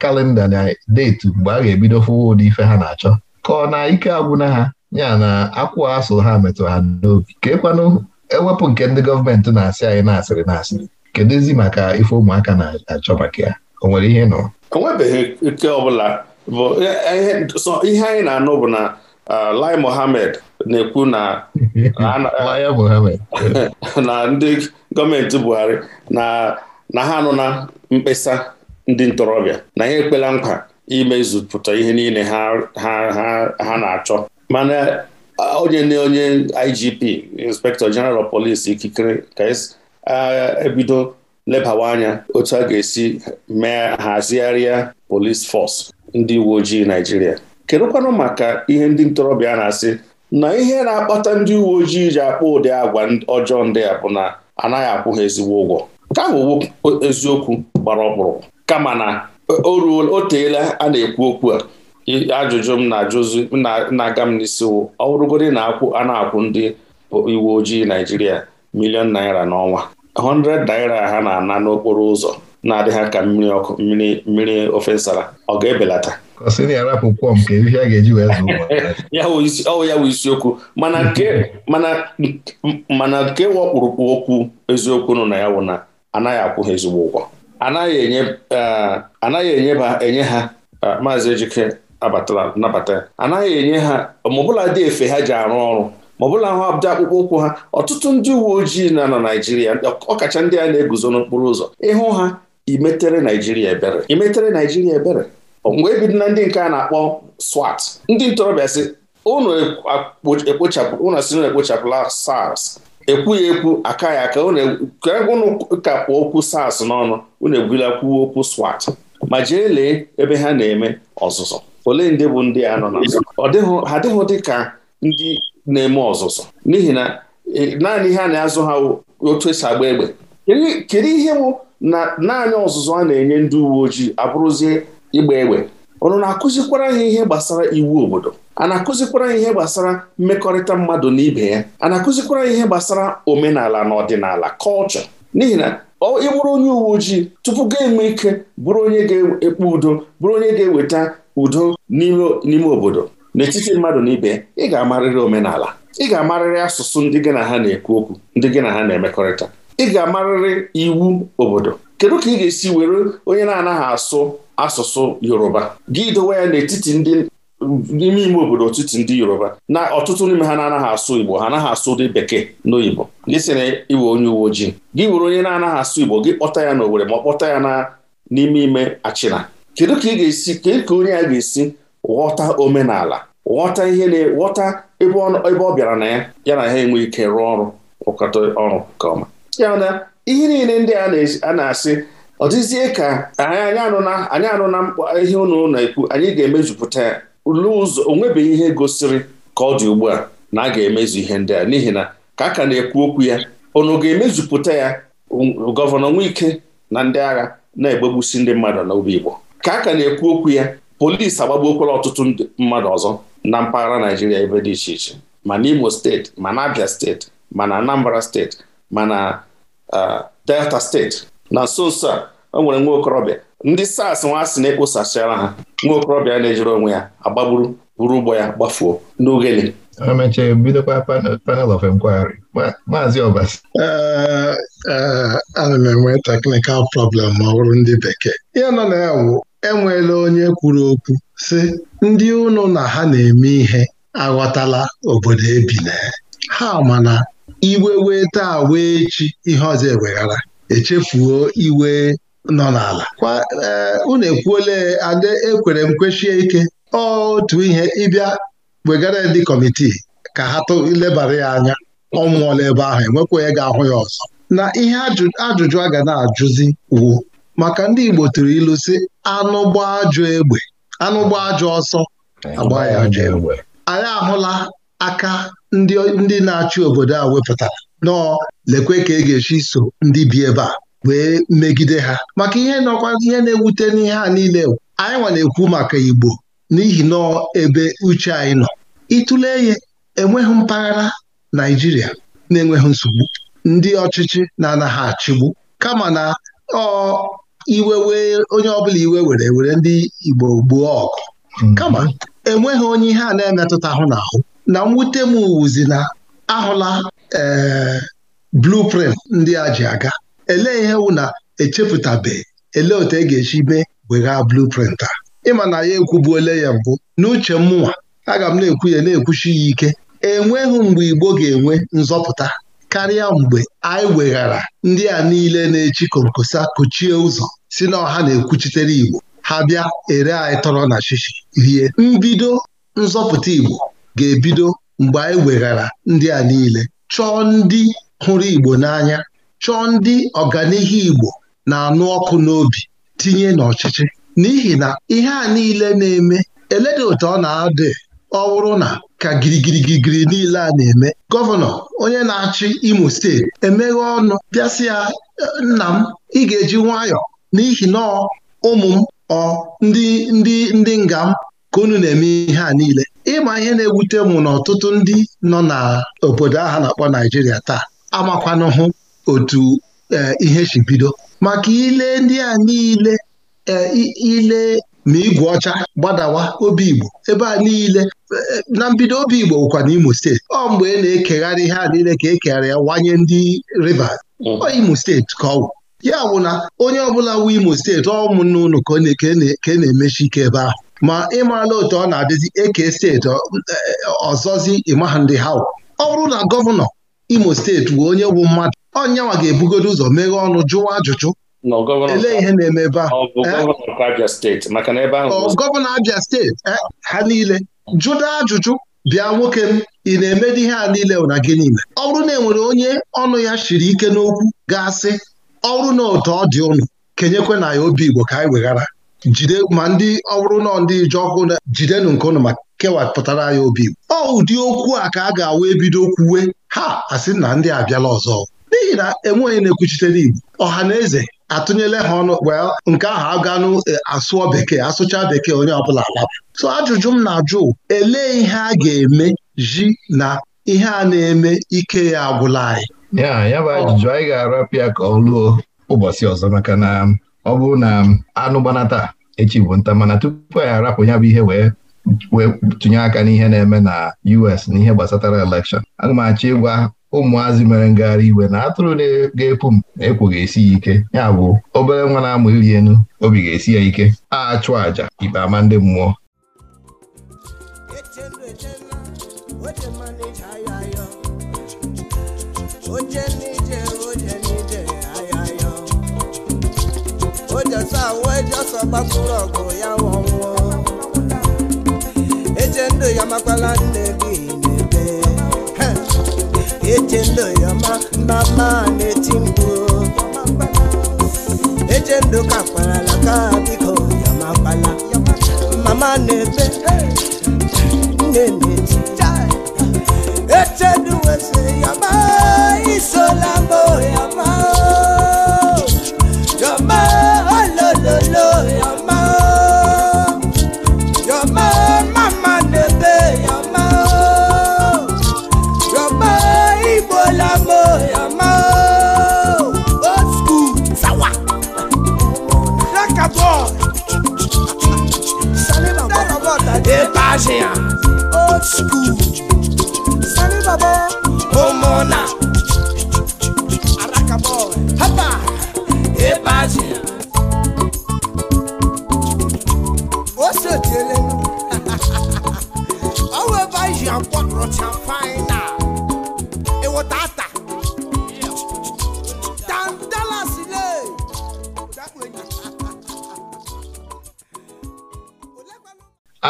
kalenda na deetu mgbe a ga-ebido fụwa ụdị ife ha na-achọ ka ọ na ike agwụna ha ya na akwụ asụ ha metụ ha n'obi ka ekwanụ ewepụ nke ndị gọọmenti na-asị anyị na-asịrị na-asịrị kedụzi maka ife ụmụaka na-achọ maka ya o nwere ihe nọ o ike e, e, ihe anyị na-anụ bụ na Uh, Lai mohamed na-ekwu na na ndị gọọmenti Buhari na ha anụ na mkpesa ndị ntorobịa na ha ekpela nkwa imezupụta ihe niile ha na-achọ mana uh, onye na onye IGP Inspector General of Police ikikere ka e uh, ebido lebawa anya otu a ga-esi mee hazigharịa police force ndị uwe ojii Naijiria kedụkwanụ maka ihe ndị ntorobịa na-asị na ihe na-akpata ndị uwe ojii ji akpọ ụdị agwa ọjọọ ndị a bụ na anaghị akwụ ha ezigbo ụgwọ ka bụ eziokwu gbara ọkpụrụ kama na e, o teela a na-ekwu okwu a ajụjụ m na-ajụzi na-aga m n'isi ọ bụrụgodị na a na-akwụ ndị uwe ojii Naijiria milion naira n'ọnwa 100 naira ha na-ana n'okporo ụzọ na adịghị ka mmiri ọkụ mmiri mmiri ofe nsara ọ ga-ebelata kọsị na-arapụkwọ nke ihe a ga-eji wee zụ ọ ya bụ isiokwu mana mm-hmm. nke wakpụrụkpụ okwu eziokwu nọ na ya wụ na anaghị akwụ ha ezigbo ụgwọ anaghị enye uh, enye ha uh, maazị Ejike nabata anaghị enye ha maọbụla dị efe ha ji arụ ọrụ maọbụla ahụ abụda akpụkpọ ụkwụ ha ọtụtụ ndị uwe ojii na na Naijiria ọkacha ndị a na-eguzo n'okporo ụzọ ịhụ ha imetere Naijiria ebere imetere Naijiria ebere wee bido na ndị nke a na-akpọ SWAT ndị ntorobịa si unu si na ekpochapụla SARS ekwughị ekwu aka ya aka ụnụ e-, ka kpụọ okwu SARS n'ọnụ unu ebula kwuo okwu SWAT ma jee lee ebe ha na-eme ọzụzụ ole ndị bụ ndị a nọ na ha dịghị dị ka ndị na-eme ọzụzụ n'ihi na e, naanị ihe a na-azụ ha otu esi agba egbe kedu ihe bụ na naanị ọzụzụ a na-enye ndị uwe ojii abụrụzie ịgba egbe ụnụ na-akụzikwara ha ihe gbasara iwu obodo a na-akụzikwara ha ihe gbasara mmekọrịta mmadụ na ibe ya a na-akụzikwara ha ihe gbasara omenala na ọdịnala kọlchọ n'ihi na ị bụrụ onye uwe ojii tupu ga-enwe ike bụrụ onye ga-ekpe udo bụrụ onye ga-eweta udo n'ime obodo n'etiti mmadụ na ibe ị ga-amarịrị omenala ị ga-amarịrị asụsụ ndị gị na ha na-ekwu okwu ndị gị na ha na-emekọrịta ị ga-amarịrị iwu obodo kedu ka ị ga-esi were onye na-anaghị asụ asụsụ yoruba gị dowe ya n'etiti ndị n'ime ime obodo etiti ndị yoruba na ọtụtụ n'ime ha na-anaghị asụ igbo ha anaghị asụ dị bekee n'oyibo gị sị na iwe onye uwe ojii gị were onye na-anaghị asụ igbo gị kpọta ya n'Owere ma ọ kpọta ya n'ime ime achịna kedu ka ị ga-esi ka onye a ga-esi ghọta omenala ghọta ihe na-ghọta ebe ọ bịara na ya ya na ha enwe ike rụọ ọrụ rụkọta ọrụ nke ọma ya ihe niile ndị a na-asị ọ dịzie ka anyị anụna anyị mkpa ihe unu na-ekwu anyị ga-emejupụta ya n'ụzọ onwebeghị ihe gosiri ka ọ dị ugbu a na a ga-emezu ihe ndị a n'ihi na ka a ka na-ekwu okwu ya unu ga-emezupụta ya gọvanọ ike na ndị agha na-egbegbusi ndị mmadụ n'obi Igbo ka a ka na-ekwu okwu ya polisi agbagbuokwala ọtụtụ mmadụ ọzọ na mpaghara Naijiria ebe dị iche iche ma na imo steeti ma na Abia steeti ma na Anambra steeti ma na Delta steeti na nso nso a o nwere nwa okorobịa ndị sars nwa asị na-ekposachara ha nwa okorobịa na-ejere onwe ya agbagburu buru ụgbọ ya gbafuo n'ogele emechaa ebidokwa panel of inquiry maazị ana m enwe teknikal problem ma ọ bụrụ ndị bekee ihe nọ na ya wụ enweela onye kwuru okwu sị ndị ụnụ na ha na-eme ihe aghọtala obodo ebina ha mana iwe wee taa wee echi ihe ọzọ eweghara echefuo iwe nọ n'ala kwa eh, unu ekwuole ade ekwere m kwechie ike otu ihe ịbịa wegara ndị kọmitii ka ha lebara ya anya ọ ebe ahụ enwekwa onye ga-ahụ ya ọzọ na ihe ajụjụ a ga na-ajụzi wu maka ndị Igbo tụrụ ilu si anụ gbaa egbe anụ gbaa ajọ ọsọ agba ya ajọ egbe anyị ahụla aka ndị na-achị obodo a wepụtara nọọ lekwe ka e ga-esi so ndị bi ebe a wee megide ha maka ihe nọkwa ihe na-ewute n'ihe a niile anyị nwa na-ekwu maka Igbo n'ihi nọọ ebe uche anyị nọ ịtụle ya enweghị mpaghara Naijiria na-enweghị nsogbu ndị ọchịchị na-anaghị achịgbu kama na ọ iwe wee onye ọbụla iwe were were ndị Igbo gbuo ọgụ hmm. kama enweghị onye ihe a na-emetụta ahụ n'ahụ na mwute m wuzi na ahụla ee eh, blueprint ndị a ji aga elee ihe wụ na echepụtabeghị elee otu e ga-esi mee weghaa bluprint a ịma na ya ekwubuole ya mbụ n'uche mụnwa aga m na-ekwu ya na-ekwuchi ya ike enweghị mgbe Igbo ga-enwe nzọpụta karịa mgbe anyị weghara ndị a niile na-echi konkosa kụchie ụzọ si na ọha na-ekwuchitere Igbo ha bịa ere anyị tọrọ na shishi rie mbido nzọpụta Igbo ga-ebido mgbe anyị weghara ndị a niile chọọ ndị hụrụ Igbo n'anya chọọ ndị ọganihu Igbo na-anụ ọkụ n'obi tinye n'ọchịchị n'ihi na ihe a niile na-eme eledị otu ọ na-adị ọ bụrụ na ka girigirigirigiri niile a na-eme gọvanọ onye na-achị Imo steeti emeghe ọnụ bịasị ya e, nna m ị ga-eji nwayọ n'ihi na ụmụ m ọ ndị ndị ndị nga m ka unu na-eme ihe a niile ịma ihe na-ewute m na ọtụtụ ndị nọ na obodo ahụ na-akpọ Naijiria taa amakwanahụ otu e, ihe si bido maka ile ndị a niile e, ile ma igwe ọcha gbadawa obi Igbo ebe a niile e, na mbido obi Igbo bụkwa imo steeti ọ mgbe ị na-ekegharị ihe a niile ka ekegharị ya wanye ndị Rivers ọ Imo steeti ka ọ ya bụ na onye ọbụla wu Imo steeti ọ ka na-emechi ike ebe ahụ ma ịmala otu ọ na-adịzi eke steeti eh, ọzọzi ịmaha ndị ha ọ bụrụ na gọvanọ imo steeti wee onye bụ mmadụ ọnyanwa ga-ebugodo ụzọ meghee ọnụ jụwa ajụjụ elee ihe na-eme ebe ahụ gọvanọ Abia steeti eh, ha niile jụda ajụjụ bịa nwoke m ị na-emedi ihe a niile na gị niile ọ bụrụ na e nwere onye ọnụ ya shiri ike n'okwu ga-asị ọ bụrụ na ụtọ ọ dị ụnụ kenyekwe na ya obi Igbo ka anyị weghara jide ma ndị ọ bụrụ nọ ndị ije ọkụ jidenụ nke ụnụ ma kewapụtara ya obi ọ ụdị okwu a ka a ga-awụ ebido kwuwe ha asị na ndị abịala ọzọ n'ihi na enweghị na ekwuchitere igbo ọha na eze atụnyela ha ọnụ well nke ahụ aganụ eh, asụọ bekee asụcha bekee onye ọbụla alaba. so ajụjụ m na-ajụ elee ihe a ga-eme ji na ihe a na-eme ike ya agwụla anyị ya bụ ajụjụ anyị ga-arapịa ka ọ lụọ ụbọchị ọzọ maka na ọ bụ na anụ gbanata echi bụ nta mana tupu anyị arapụ ya bụ ihe wee wee tụnye aka n'ihe na-eme na US n'ihe gbasatara elekshọn aga m achọ ịgwa ụmụazị mere ngagharị iwe na atụrụ ga-epu m ekwo ga-esi ya ike ya bụ obere nwa na-amụ iri enu obi ga-esi ya ike a chụọ aja ikpe ama ndị mmụọ wee jọsọ gbapụrụ ọgụ ya ọnwụọ eche ndụ ya makwala nne gị n'ebe eche ndụ ya ma mba mma na-eti mkpu eche ndụ ka kwarala ka biko ya makwala mama na-ebe nne na-eti eche ndụ wesịrị ya ma isola mbụ ya ma Agea Old school Sani Baba Omona Araka boy Hapa Eba Agea Ose tele Owe ba yi akwa rocha fine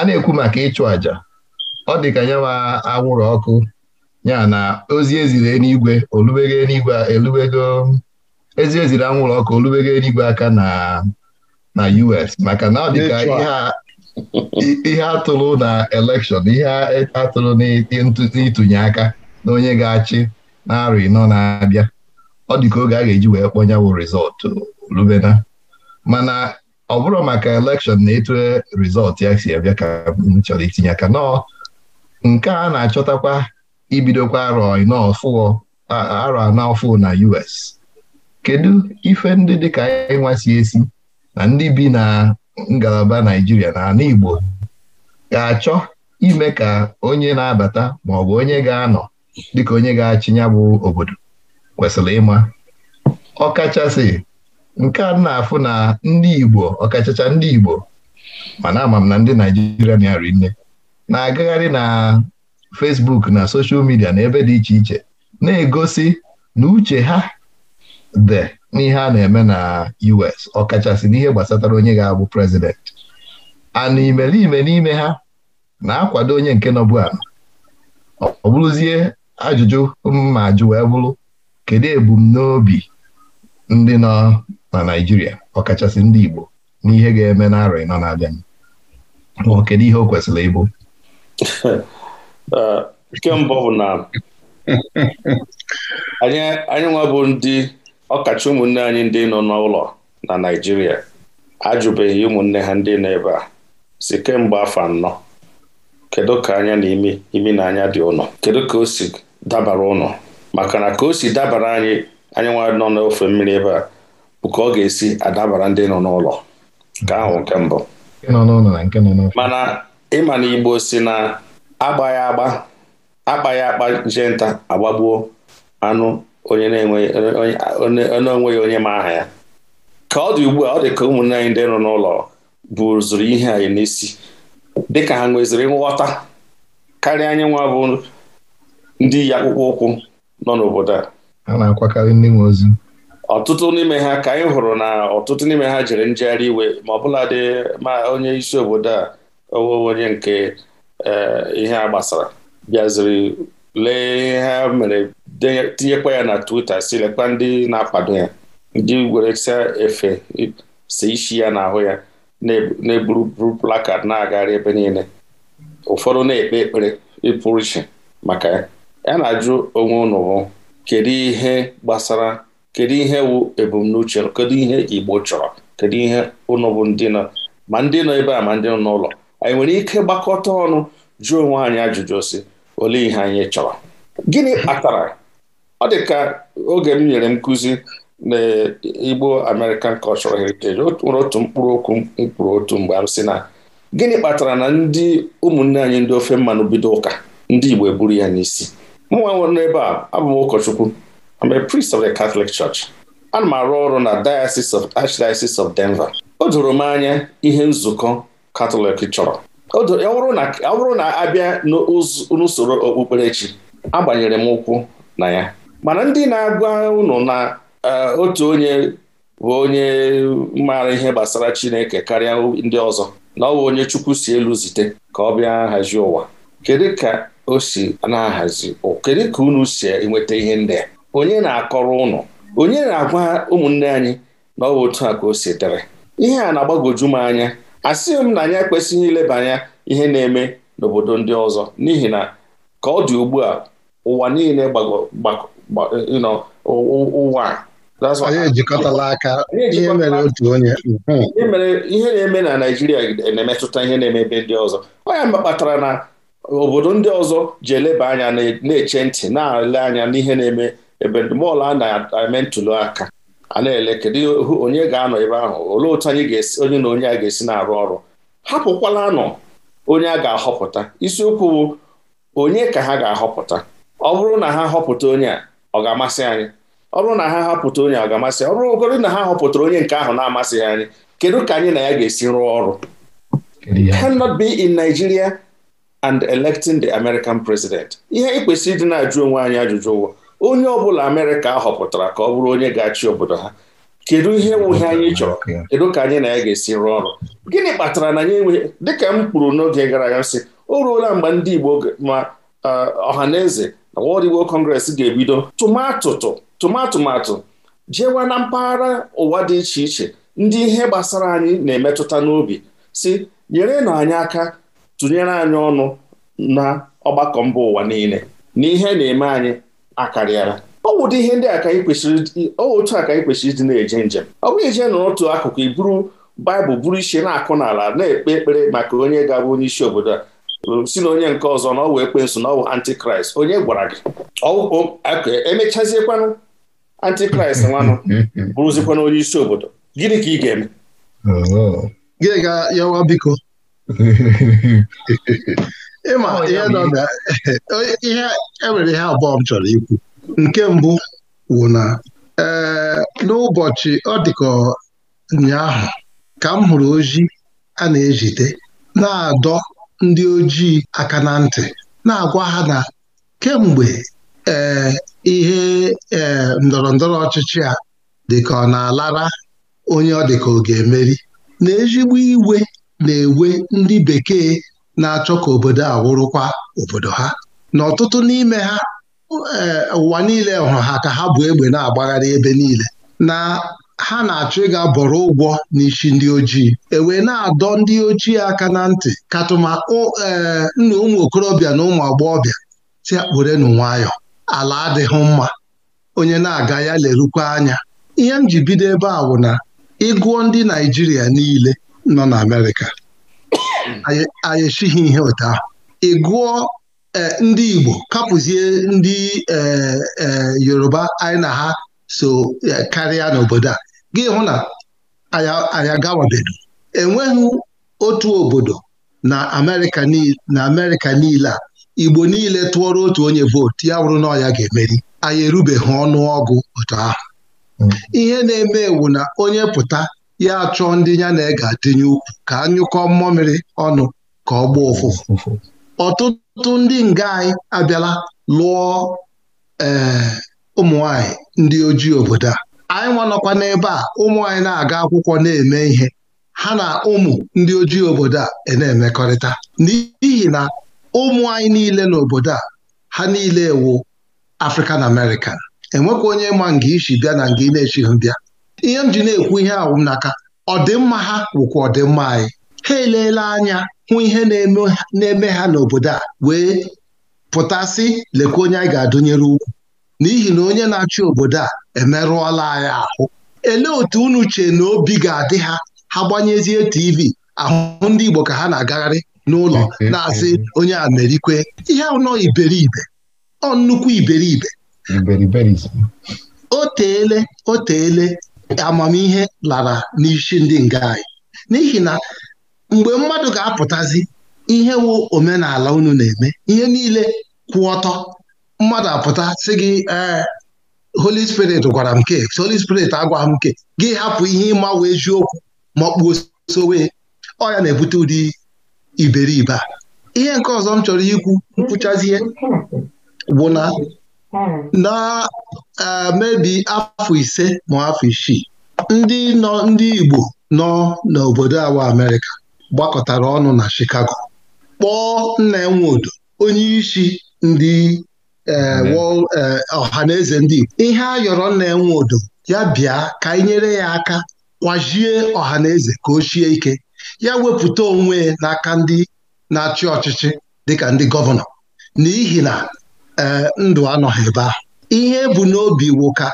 a na-ekwu maka ịchụ àjà ọ dị ka nyewa anwụrụ ọkụ ya na ozi eziri eluigwe olubere elubego ezi eziri anwụrụ ọkụ olubere eluigwe aka na na US maka na ọ dị ka ihe atụrụ na elekshọn ihe atụrụ n'itụnye aka na onye ga-achị na-arụ ịnọ na-abịa ọ dị ka oge a ga-eji wee kpọnyanwụ rịzọtụ rubena ọ bụrụ maka elekshọn na etu rizọtụ ya si abịa ka m chọrọ itinye aka nọ nke a na-achọtakwa ibidokwa arọ anọ na US kedu ife ndị dịka ịnwa si esi na ndị bi na ngalaba Naijiria na ala Igbo ga-achọ ime ka onye na-abata maọbụ onye ga-anọ dịka onye ga-achị obodo kwesịrị ịma ọ kachasị nke a na-afụ na ndị Igbo ọkachacha ndị Igbo mana ama na ndị Naijiria na nne na-agagharị na Facebook na soshal midia na ebe dị iche iche na-egosi na uche ha dị n'ihe a na-eme na US ọkachasị n'ihe gbasatara onye ga-abụ prezident a na n'ime ha na-akwado onye nke nọbụ ala ọ bụrụzie ajụjụ ma ajụ wee bụrụ kedu ebumnobi ndị nọ na Naịjirịa ọkachasị ndị Igbo n'ihe ga-eme n'arọ ịnọ na-abịa ma kedu ihe o kwesịrị ịbụ uh, nke mbụ bụ na anyị nwa bụ ndị ọkacha ụmụnne anyị ndị nọ n'ụlọ na Naịjirịa ajụbeghị ụmụnne ha ndị nọ ebe a si kemgbe afọ anọ kedu ka anya na imi imi na anya dị ụnọ kedu ka o si dabara ụnọ maka na ka o si dabara anyị anyị nwa nọ n'ofe mmiri ebe a Nke ka ọ ga-esi adabara ndị nọ n'ụlọ nke ahụ nke mbụ mana ịma na Igbo si na agbaghị agba akpaghị akpa jee nta agbagbuo anụ onye na-enweghị onye ma aha ya ka ọ dị ugbu a ọ dị ka ụmụnne anyị ndị nọ n'ụlọ buzuru ihe anyị n'isi dịka ha nweziri nghọta karịa anyị nwa bụ ndị iyi akpụkpọ ụkwụ nọ n'obodo a a na-akwakarị ndị nwe ozi ọtụtụ n'ime ha ka anyị hụrụ na ọtụtụ n'ime ha jere njegharị iwe ma ọbụladị ma onye isi obodo a owewe onye nke e, ihe a gbasara bịaziri lee ha mere tinyekwa ya na Twitter si lekwa ndị na-akwado ya ndị weresia efe si isi ya n'ahụ ya na-eburu plakad na-agagharị ebe niile ụfọdụ na-ekpe ekpere ịpụrụ iche maka ya ya na-ajụ onwe unu kedu ihe gbasara kedu ihe wụ ebumnuche kedu ihe Igbo chọrọ kedu ihe ụnụ bụ ndị nọ ma ndị nọ ebe a ma ndị nọ n'ụlọ anyị nwere ike gbakọta ọnụ jụọ onwe anyị ajụjụ si ole ihe anyị chọrọ gịnị kpatara ọ dị ka oge m nyere nkụzi na Igbo American Cultural Heritage nwere otu mkpụrụ okwu mkpụrụ otu mgbe m sị na gịnị kpatara na ndị ụmụnne anyị ndị ofe mmanụ bido ụka ndị Igbo eburu ya n'isi mụnwa nwere n'ebe a abụ m ụkọchukwu am a priest of the Catholic Church. Ana m arụ ọrụ na Diocese of Archdiocese of Denver. O doro m anya ihe nzukọ Katọlik chọrọ ọ bụrụ na abịa n'usoro okpukperechi agbanyere m ụkwụ na ya mana ndị na-agwa unu na e, otu onye bụ onye maara ihe gbasara Chineke karịa ndị ọzọ na ọ bụ onye Chukwu si elu zite ka ọ bịa nhazi ụwa kedu ka o si na-ahazi kedu ka unu si enweta ihe ndị a onye na-akọrọ ụnụ onye na-agwa ụmụnne anyị na ọ bụ otu a ka o si dịrị ihe a na-agbagoju m anya asịghị m na anyị ekwesịghị ileba anya ihe na-eme n'obodo ndị ọzọ n'ihi na ka ọ dị ugbu a ụwa niile ụwa ihe na-eme na Naijiria na-emetụta ihe na-eme ebe ndị ọzọ onya ya kpatara na obodo ndị ọzọ ji eleba anya na-eche ntị na-ele anya n'ihe na-eme ebe ndụmọdụ a na ntụli aka a na-ele kedu onye ga-anọ ebe ahụ olee otu anyị ga-esi onye na onye a ga-esi na-arụ ọrụ hapụkwala anọ onye a ga-ahọpụta isiokwu bụ onye ka ha ga-ahọpụta ọ bụrụ na ha họpụta onye a ọ ga-amasị anyị ọ bụrụ na ha ahọpụta onye ọ ga-amasị ọ bụrụgodị na ha họpụtara onye nke ahụ na-amasịghị anyị kedu ka anyị na ya ga-esi rụọ ọrụ cannot be in Nigeria and electing the American president ihe anyị kwesịrị ịdị na-ajụ onwe anyị ajụjụ ụwa onye ọbụla amerịka họpụtara ka ọ bụrụ onye ga-achị obodo ha kedu ihe nwuhe anyị chọrọ kedu ka anyị na ya ga-esi rụọ ọrụ gịnị kpatara na anyị enweghị dịka m kwuru n'oge gara aga sị o ruola mgbe ndị igbo ma ọha na eze na World Igbo Congress ga-ebido tụmatụtụ tụmatụmatụ jewa na mpaghara ụwa dị iche iche ndị ihe gbasara anyị na-emetụta n'obi si nyere na anyị aka tụnyere anyị ọnụ na ọgbakọ mba ụwa niile na ihe na-eme anyị akarịala ọwụdị ihe ndị a ka anyị kwesịrị otu a ka anyị kwesịrị ịdị na-eje njem ọ bụghị ije n'otu akụkụ iburu baịbụl buru isi na-akụ n'ala na-ekpe ekpere maka onye ga-abụ onye isi obodo a si na onye nke ọzọ na ọ wụ ekwensu na ọ wụ antikraịst onye gwara gị emechaziekwanụ antikraịst nwanụ bụrụzikwana onye isi obodo gịnị ka ị ga-eme gị ga yawa biko ịma ihe nọ na ihe enwere ihe abụọ m chọrọ ikwu nke mbụ wụ na ee eh, n'ụbọchị ọ dịka ụnyaahụ ka m hụrụ ozi a na-ejide na-adọ ndị ojii aka na ntị na-agwa ha na kemgbe ee eh, ihe ee eh, ndọrọ ndọrọ ọchịchị a dịka ọ na-alara onye ọ dịka ọ ga-emeri na ezigbo iwe na-ewe ndị bekee na-achọ ka obodo a wụrụkwa obodo ha na ọtụtụ n'ime ha eh, ụwa niile hụrụ ha ka ha bụ egbe na-agbagharị ebe niile na ha na-achọ ịga bọrọ ụgwọ n'isi ndị ojii ewee na-adọ ndị ojii aka na ntị katụma eh, nna ụmụ okorobịa na ụmụ agbọghọbịa si akpụrenu nwayọ ala adịghị mma onye na-aga ya lerukwa anya ihe m ji bido ebe a bụ na ịgụọ ndị Naijiria niile nọ na Amerịka Mm. anyị esighị ihe ụta ị gụọ e, ndị Igbo kapụzie ndị e, e, Yoruba anyị na ha so karịa n'obodo a gị hụ na anyị agawabeghị enweghị otu obodo na Amerịka niile a Igbo niile tụọrọ otu onye vootu ya wụrụ na ya ga-emeri anyị erubeghị ọnụ ọgụ otu mm. ihe na-eme wu na onye pụta ya achọ ndị ya na ega adịnye ukwu ka anyụkọ mmamịrị ọnụ ka ọ gbaa ụfụfụ ọtụtụ ndị nga anyị abịala lụọ ee eh, ụmụ ndị ojii obodo a anyị nwanọkwa n'ebe a ụmụ anyị na-aga akwụkwọ na-eme ihe ha na ụmụ ndị ojii obodo a e na-emekọrịta n'ihi na ụmụ anyị niile n'obodo a ha niile ewu African American enwekwa onye ma nga isi bịa na nga ị na-echighị bịa ihe m ji na-ekwu ihe ahụ m n'aka ọdịmma ha wụkwa ọdịmma anyị ha eleela anya hụ ihe na-eme ha n'obodo a wee pụtasị lekwa onye anyị ga-adụnyere ukwu n'ihi na onye na-achị obodo a emerụọla anyị ahụ elee otu unu chee na obi ga-adị ha ha gbanyezie TV ahụ ndị Igbo ka ha na-agagharị n'ụlọ mm-hmm. na-asị onye a ihe ahụ iberibe ọ nnukwu iberibe o teele o teele amamihe lara n'isi ndị nga anyị n'ihi na mgbe mmadụ ga-apụtazi ihe wụ omenala unu na-eme ihe niile kwụ ọtọ mmadụ apụta sị gị ee Holy Spirit gwara m ke Holy Spirit agwaghị m ke gị hapụ ihe ịma eziokwu ma ọ kpuo sowe ọ ya na-ebute ụdị iberibe a ihe nke ọzọ m chọrọ ikwu nkwụchazie bụ na na e, mebi afọ ise ma afọ isii ndị nọ ndị Igbo nọ n'obodo awa Amerịka gbakọtara ọnụ na Chicago kpọọ nna Nwodo, onye isi ndị e, e, ọha na eze ndị Igbo ihe a yọrọ nna nwodo ya bịa ka anyị nyere ya aka kwazie ọha na eze ka o chie ike ya wepụta onwe n'aka ndị na-achị ọchịchị dịka ndị gọvanọ n'ihi na Eh, ndụ anọghị ebe ahụ ihe bụ n'obi wụka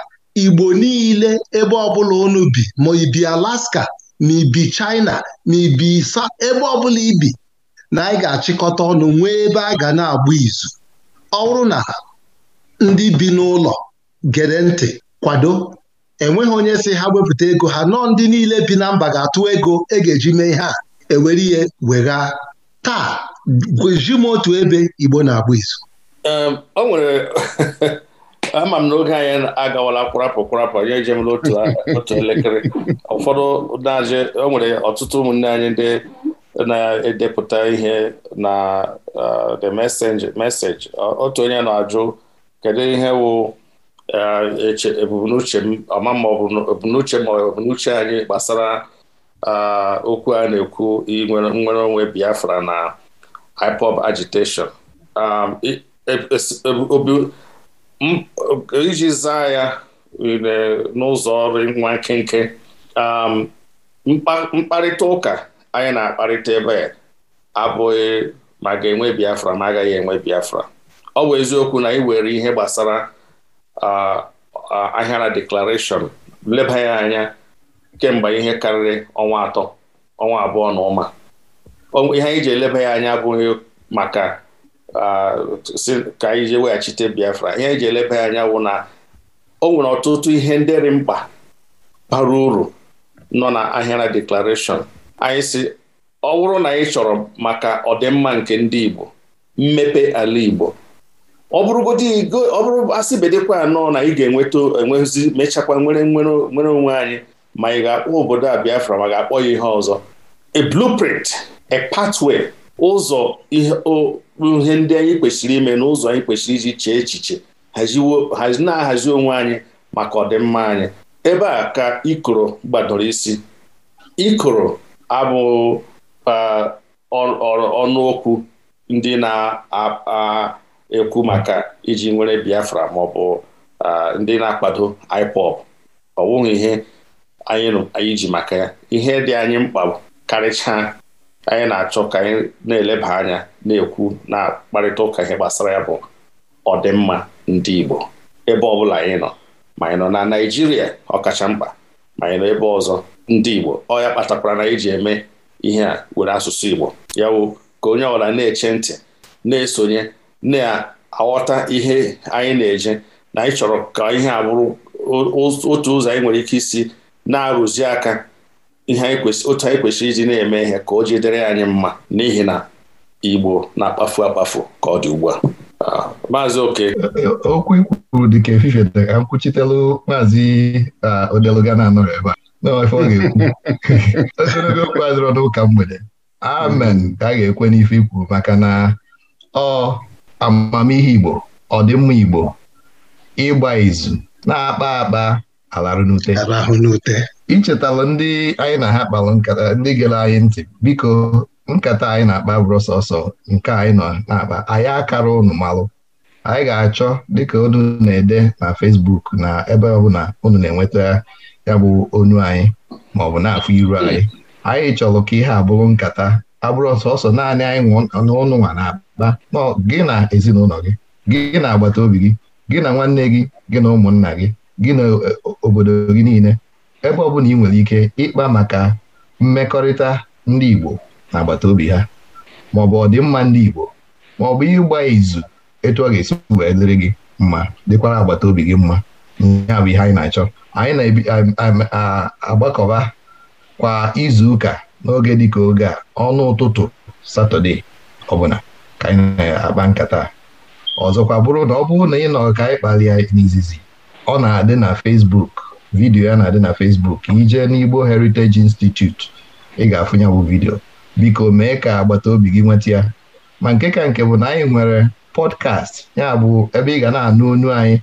Igbo niile ebe ọbụla unu bi ma ibi Alaska ma ibi China ma ibi isa ebe ọbụla ibi na anyị ga-achịkọta ọnụ nwee ebe a ga na-agba izu ọ bụrụ na ndị bi n'ụlọ gere ntị kwado enweghị onye si ha wepụta ego ha nọọ ndị niile bi na mba ga-atụ ego e ga-eji mee ihe a ewere ihe wegha taa gweji m otu ebe Igbo na-agba izu o nwere ama m n'oge anyị agawala kwarapụ kwarapụ anyị jem otu elekere ụfọdụ na o nwere ọtụtụ ụmụnne anyị ndị na-edepụta ihe na eh, the message otu onye na-ajụ kedu ihe wụ eh, ebumnuche ọma ma n'uche ma ebumnuche anyị gbasara eh, okwu a na-ekwu nwere onwe Biafra na IPOB agitation iji zaa ya n'ụzọ ọrụ nwa nkenke mkparịta ụka anyị na-akparịta ebe abụghị ma ga-enwe Biafra ma agaghị enwe Biafra ọ bụ eziokwu na ị were ihe gbasara ahịara deklarashọn leba ya anya kemgbe ihe karịrị ọnwa atọ ọnwa abụọ na ụma ihe anyị ji eleba ya anya abụghị maka ka anyị ji weghachite Biafra ihe eji eleba anya wụ na o nwere ọtụtụ ihe ndịrị mkpa bara uru nọ na ahịara deklarashọn anyị si ọ bụrụ na anyị chọrọ maka ọdịmma nke ndị Igbo mmepe ala Igbo ọ bụrụ asị bedekwa anọ na ị ga-enweta enwezi mechakwa nwere nwere onwe anyị ma ị ga-akpọ obodo a Biafra ma ga-akpọ ya ihe ọzọ a blueprint a pathway ụzọ ihe ndị anyị kwesịrị ime n'ụzọ anyị kwesịrị iji chee echiche na-ahazi onwe anyị maka ọdịmma anyị ebe a ka ikoro gbadoro isi ikoro abụ ọnụokwu ndị na-ekwu maka iji nwere Biafra ma ọ bụ ndị na-akwado ipop ọ wụghị ihe anyị ji maka ya ihe dị anyị mkpa karịchaa anyị na-achọ ka anyị na-eleba anya na-ekwu na mkparịta ụka ihe gbasara ya bụ ọdịmma ndị Igbo ebe ọ bụla anyị nọ ma anyị nọ na Naịjirịa ọkacha mkpa ma anyị nọ ebe ọzọ ndị Igbo ọ ya kpatakwara na anyị ji eme ihe a were asụsụ Igbo ya wụ ka onye ọbụla na-eche ntị na-esonye na-aghọta ihe anyị na-eje na anyị chọrọ ka ihe a bụrụ otu ụzọ anyị nwere ike isi na-arụzi aka ihe otu anyị kwesịrị iji na-eme ihe ka o jidere anyị mma n'ihi na Igbo na-akpafu akpafu ka ọ dị ugbu a ah, Maazị Oke. Okwu ikwuru dị ka efife dị nkwuchitelu maazị ah, Odeluga na-anọrọ ebe a n'ofe ọ ga-ekwu ogologo okwu adịrọ n'ụka mgbede amen ka a ga-ekwe n'ife ikwuru maka na ọ amamihe Igbo ọdịmma Igbo ịgba izu na-akpa akpa alarụnute n'ute. ichetala ndị anyị na ha kpalụ nkata ndị gere anyị ntị biko nkata anyị na-akpa bụrụ nke anyị nọ na-akpa anyị akara unu malụ anyị ga-achọ dịka unu na-ede na Facebook na ebe ọbụla unu na-enweta ya bụ onu anyị ma ọ bụ na-afụ iru anyị anyị chọrọ ka ihe abụrụ nkata abụrụ ọsọ naanị anyị n'ụnụ nwa na-akpa gị na ezinụlọ gị gị na agbata obi gị gị na nwanne gị gị na ụmụnna gị gị na e, obodo gị niile ebe ọbụla ị nwere ike ịkpa maka mmekọrịta ndị Igbo na agbata obi ha maọbụ ọdịmma ndị Igbo maọbụ ịgba izu etu ọ ga-esi wee dịrị gị mma dịkwara agbata obi gị mma ya bụ ihe anyị na-achọ anyị na-agbakọba kwa izu ụka n'oge dịka oge a ọnụ ụtụtụ satọde ọbụla ka anyị na-akpa nkata ọzọkwa bụrụ na ọ bụrụ na ị nọ ka anyị kpalie n'izizi ọ na-adị na fesbuk. vidiyo ya na-adị na Facebook ijee n'Igbo Heritage Institute ị ga-afụnye bụ vidiyo biko mee ka agbata obi gị nweta ya ma nke ka nke bụ na anyị nwere pọdkast ya bụ ebe ị ga na-anụ onu anyị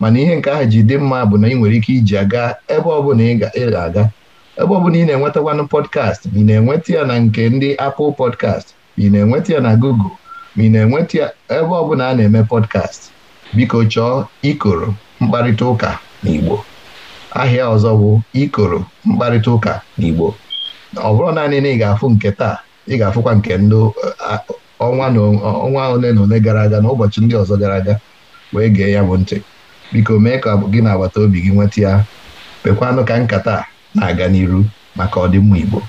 mana ihe nke ahụ ji dị mma bụ na ị nwere ike iji aga ebe ọbụla ị ga-aga ebe ọbụla ị na-enwetakwanụ podcast ma ị na-enweta ya na nke ndị Apple pọdkast ma ị na-enweta ya na Google ma ị na-enweta ya ebe ọbụla a na-eme pọdkast biko chọọ ikoro mkparịta ụka Igbo. ahịa ọzọ bụ ikoro mkparịta ụka n'Igbo ọ bụrụ naanị na ị ga-afụ nke taa ị ga-afụkwa nke ndị eh, ọnwa ole na ole gara aga na ụbọchị ndị ọzọ gara aga wee gee ya bụ ntị biko mee ka gị na agbata obi gị nweta ya pekwanụ ka nkata na-aga n'iru maka ọdịmma Igbo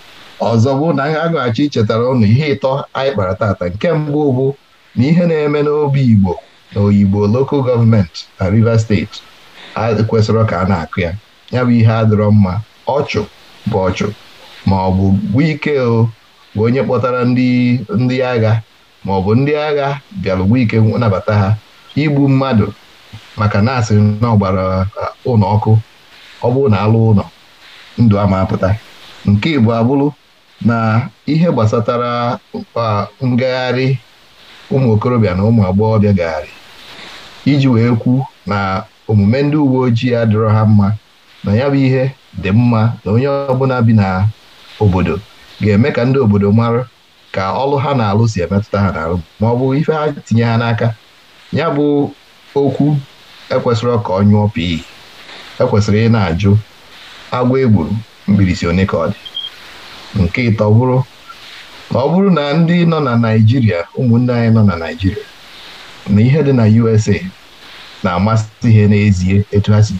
ọzọ bụ na ha ichetara ụnụ ihe ịtọ anyị kpara tata nke mbụ bụ na ihe na-eme n'obi Igbo na oyibo lokal gọọmenti na Rivers steeti kwesịrị ka a na-akụ ya ya bụ ihe adịrọ mma ọchụ bụ ọchụ ma ọ bụ wike o bụ onye kpọtara ndị agha ma ọ bụ ndị agha bịara ike nabata ha igbu mmadụ maka na asịrị na ọgbara uh, ụlọ ọkụ ọ bụrụ na alụ ụlọ ndụ ama apụta nke Igbo abụrụ na ihe gbasatara uh, ngagharị ụmụ okorobịa na ụmụ agbọghọbịa gagharị iji wee kwu na omume ndị uwe ojii adịrọ ha mma na ya bụ ihe dị mma na onye ọbụla bi na obodo ga-eme ka ndị obodo mara ka ọlụ ha na-alụ si emetụta ha n'alụ ma ọ bụ ife ha tinye ha n'aka ya bụ okwu ekwesịrị ka ọ nyụọ pii ekwesịrị ị na-ajụ agwa egburu mbirisi one ka ọ dị nke ịtọ bụrụ ọ bụrụ na ndị nọ na Naịjirịa ụmụnne anyị nọ na Naịjirịa na ihe dị na USA na-amasị ihe n'ezie etu ha si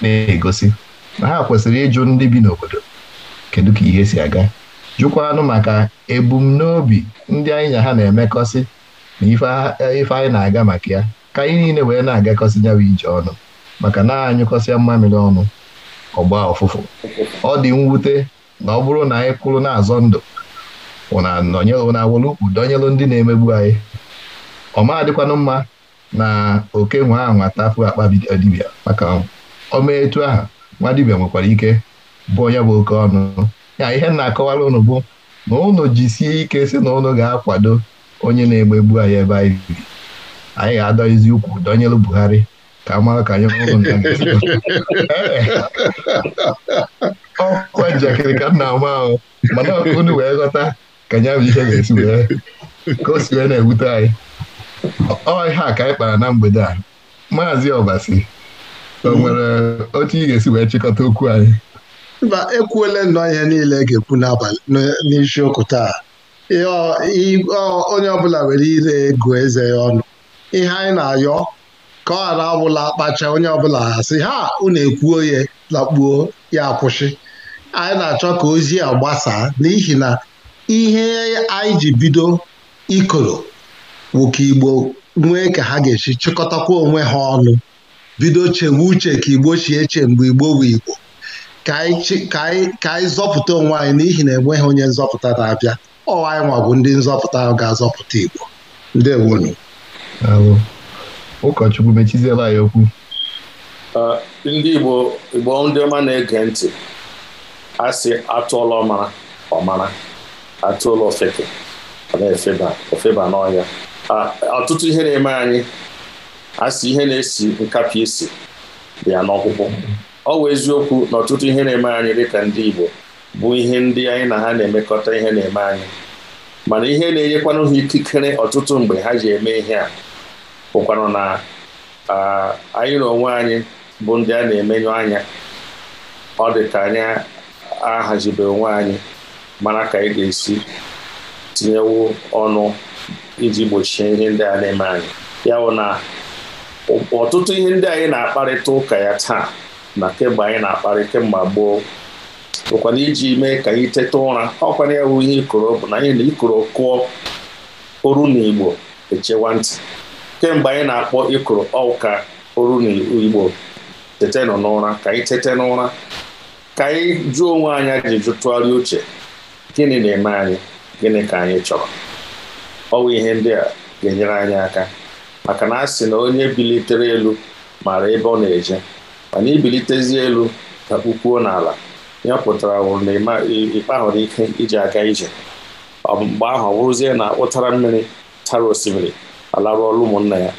na-egosi na ha kwesịrị ịjụ ndị bi n'obodo kedu ka ihe si aga jụkwanụ maka ebumnobi ndị anyị na ha na-emekọsị na ife anyị na-aga maka ya ka anyị niile wee na-agakọsị nyawa ije ọnụ maka na anyụkọsịa mmamịrị ọnụ ọgba ọfụfụ ọ dị mwute na ọ bụrụ na anyị kwụrụ na-azọ ndụ na-awụlụ ukwu ndị na-emegbu anyị ọmadịkwanụ mma na oke nwe ahụ atapụ akpa dibia maka ọma etu ahụ nwa dibịa nwekwara ike bụ onye bụ oke ọnụ ya ihe na-akọwara ụnụ bụ na ụnụ jisie ike si na ụnụ ga-akwado onye na-egbegbu anyị ebe anyị bi anyị ga-adọghịzi ukwu dọnyelu Buhari ka mara ka anyị na ọkwa njakịrị ka m na-ama ahụ mana unu wee ghọta ka nya bụ ihe ga-esi wee ka o si wee na-ewute anyị ọ ihe a ka anyị kpara na mgbede a maazị Ọbasi o nwere otu ị ga-esi wee chịkọta okwu anyị mba ekwuole nnọọ ihe niile ga-ekwu n'abalị n'isiokwu taa onye ọbụla were ire ego eze ya ọnụ ihe anyị na-ayọ ka ọ ghara ọbụla kpacha onye ọbụla asị ha unu ekwuo ya lakpuo ya akwụsị anyị na-achọ ka ozi a gbasaa n'ihi na ihe anyị ji bido ikoro nwoke Igbo nwee ka ha ga-esi chịkọtakwa onwe ha ọnụ bido chewe uche ka Igbo chi eche mgbe Igbo bụ Igbo ka anyị zọpụta onwe anyị n'ihi na enweghị onye nzọpụta na-abịa ọ anyị nwa bụ ndị nzọpụta ahụ ga-azọpụta Igbo ndewonu ụkọchukwu mechiziela anyị okwu ndị Igbo Igbo ndị ọma na-ege ntị a sị atụọla ọmara ọmara atụọla ofeke ofeba n'ọhịa ọtụtụ ihe na-eme anyị a ihe na-esi nkapị isi bịa n'ọkpụkpụ ọ bụ eziokwu na ọtụtụ ihe na-eme anyị dịka ndị Igbo bụ ihe ndị anyị na ha na-emekọta ihe na-eme anyị mana ihe na-enyekwanụ ha ikikere ọtụtụ mgbe ha ji eme ihe a bụkwanụ na anyị na onwe anyị bụ ndị a na-emenye anya ọ dị ka anyị ahazibe onwe anyị mara ka anyị ga-esi tinyewo ọnụ iji gbochie ihe ndị a na-eme anyị ya bụ na ọtụtụ ihe ndị anyị na-akparịta ụka ya taa na kemgbe anyị na-akparị kemgbe gboo bụkwana iji mee ka anyị teta ụra ọkwana ya wụ ihe ikoro bụ na anyị na ikoro kụọ oru na igbo echewa ntị kemgbe anyị na-akpọ ikoro ọka oru na igbo tetenụ n'ụra ka anyị tete n'ụra ka anyị jụọ onwe anyị jụ tụgharị uche gịnị na-eme anyị gịnị ka anyị chọrọ ọ bụ ihe ndị a ga-enyere anyị aka maka na a sị na onye bilitere elu mara ebe ọ na-eje mana ibilitezi elu ka kpukwuo n'ala ya pụtara wụrụ na ịkpahụrụ ike iji aga ije mgbe ahụ ọ bụrụzie na ụtara mmiri tara osimiri alarụ ọrụ ụmụnna ya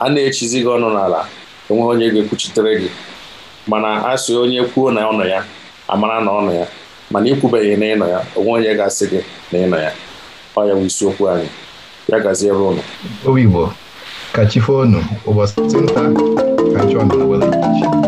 a na-echizi gị ọnụ n'ala enweghị onye ga-ekwuchitere gị mana a sị onye kwuo na ọnọ ya amara na ọnọ ya mana ikwubeghị na ịnọ ya onwe onye ga-asị gị na ịnọ ya ọ ya bụ isiokwu anyị ya gazie ebe ụnụ ka chi fonu ụbọchị nta ka chi ọnụ were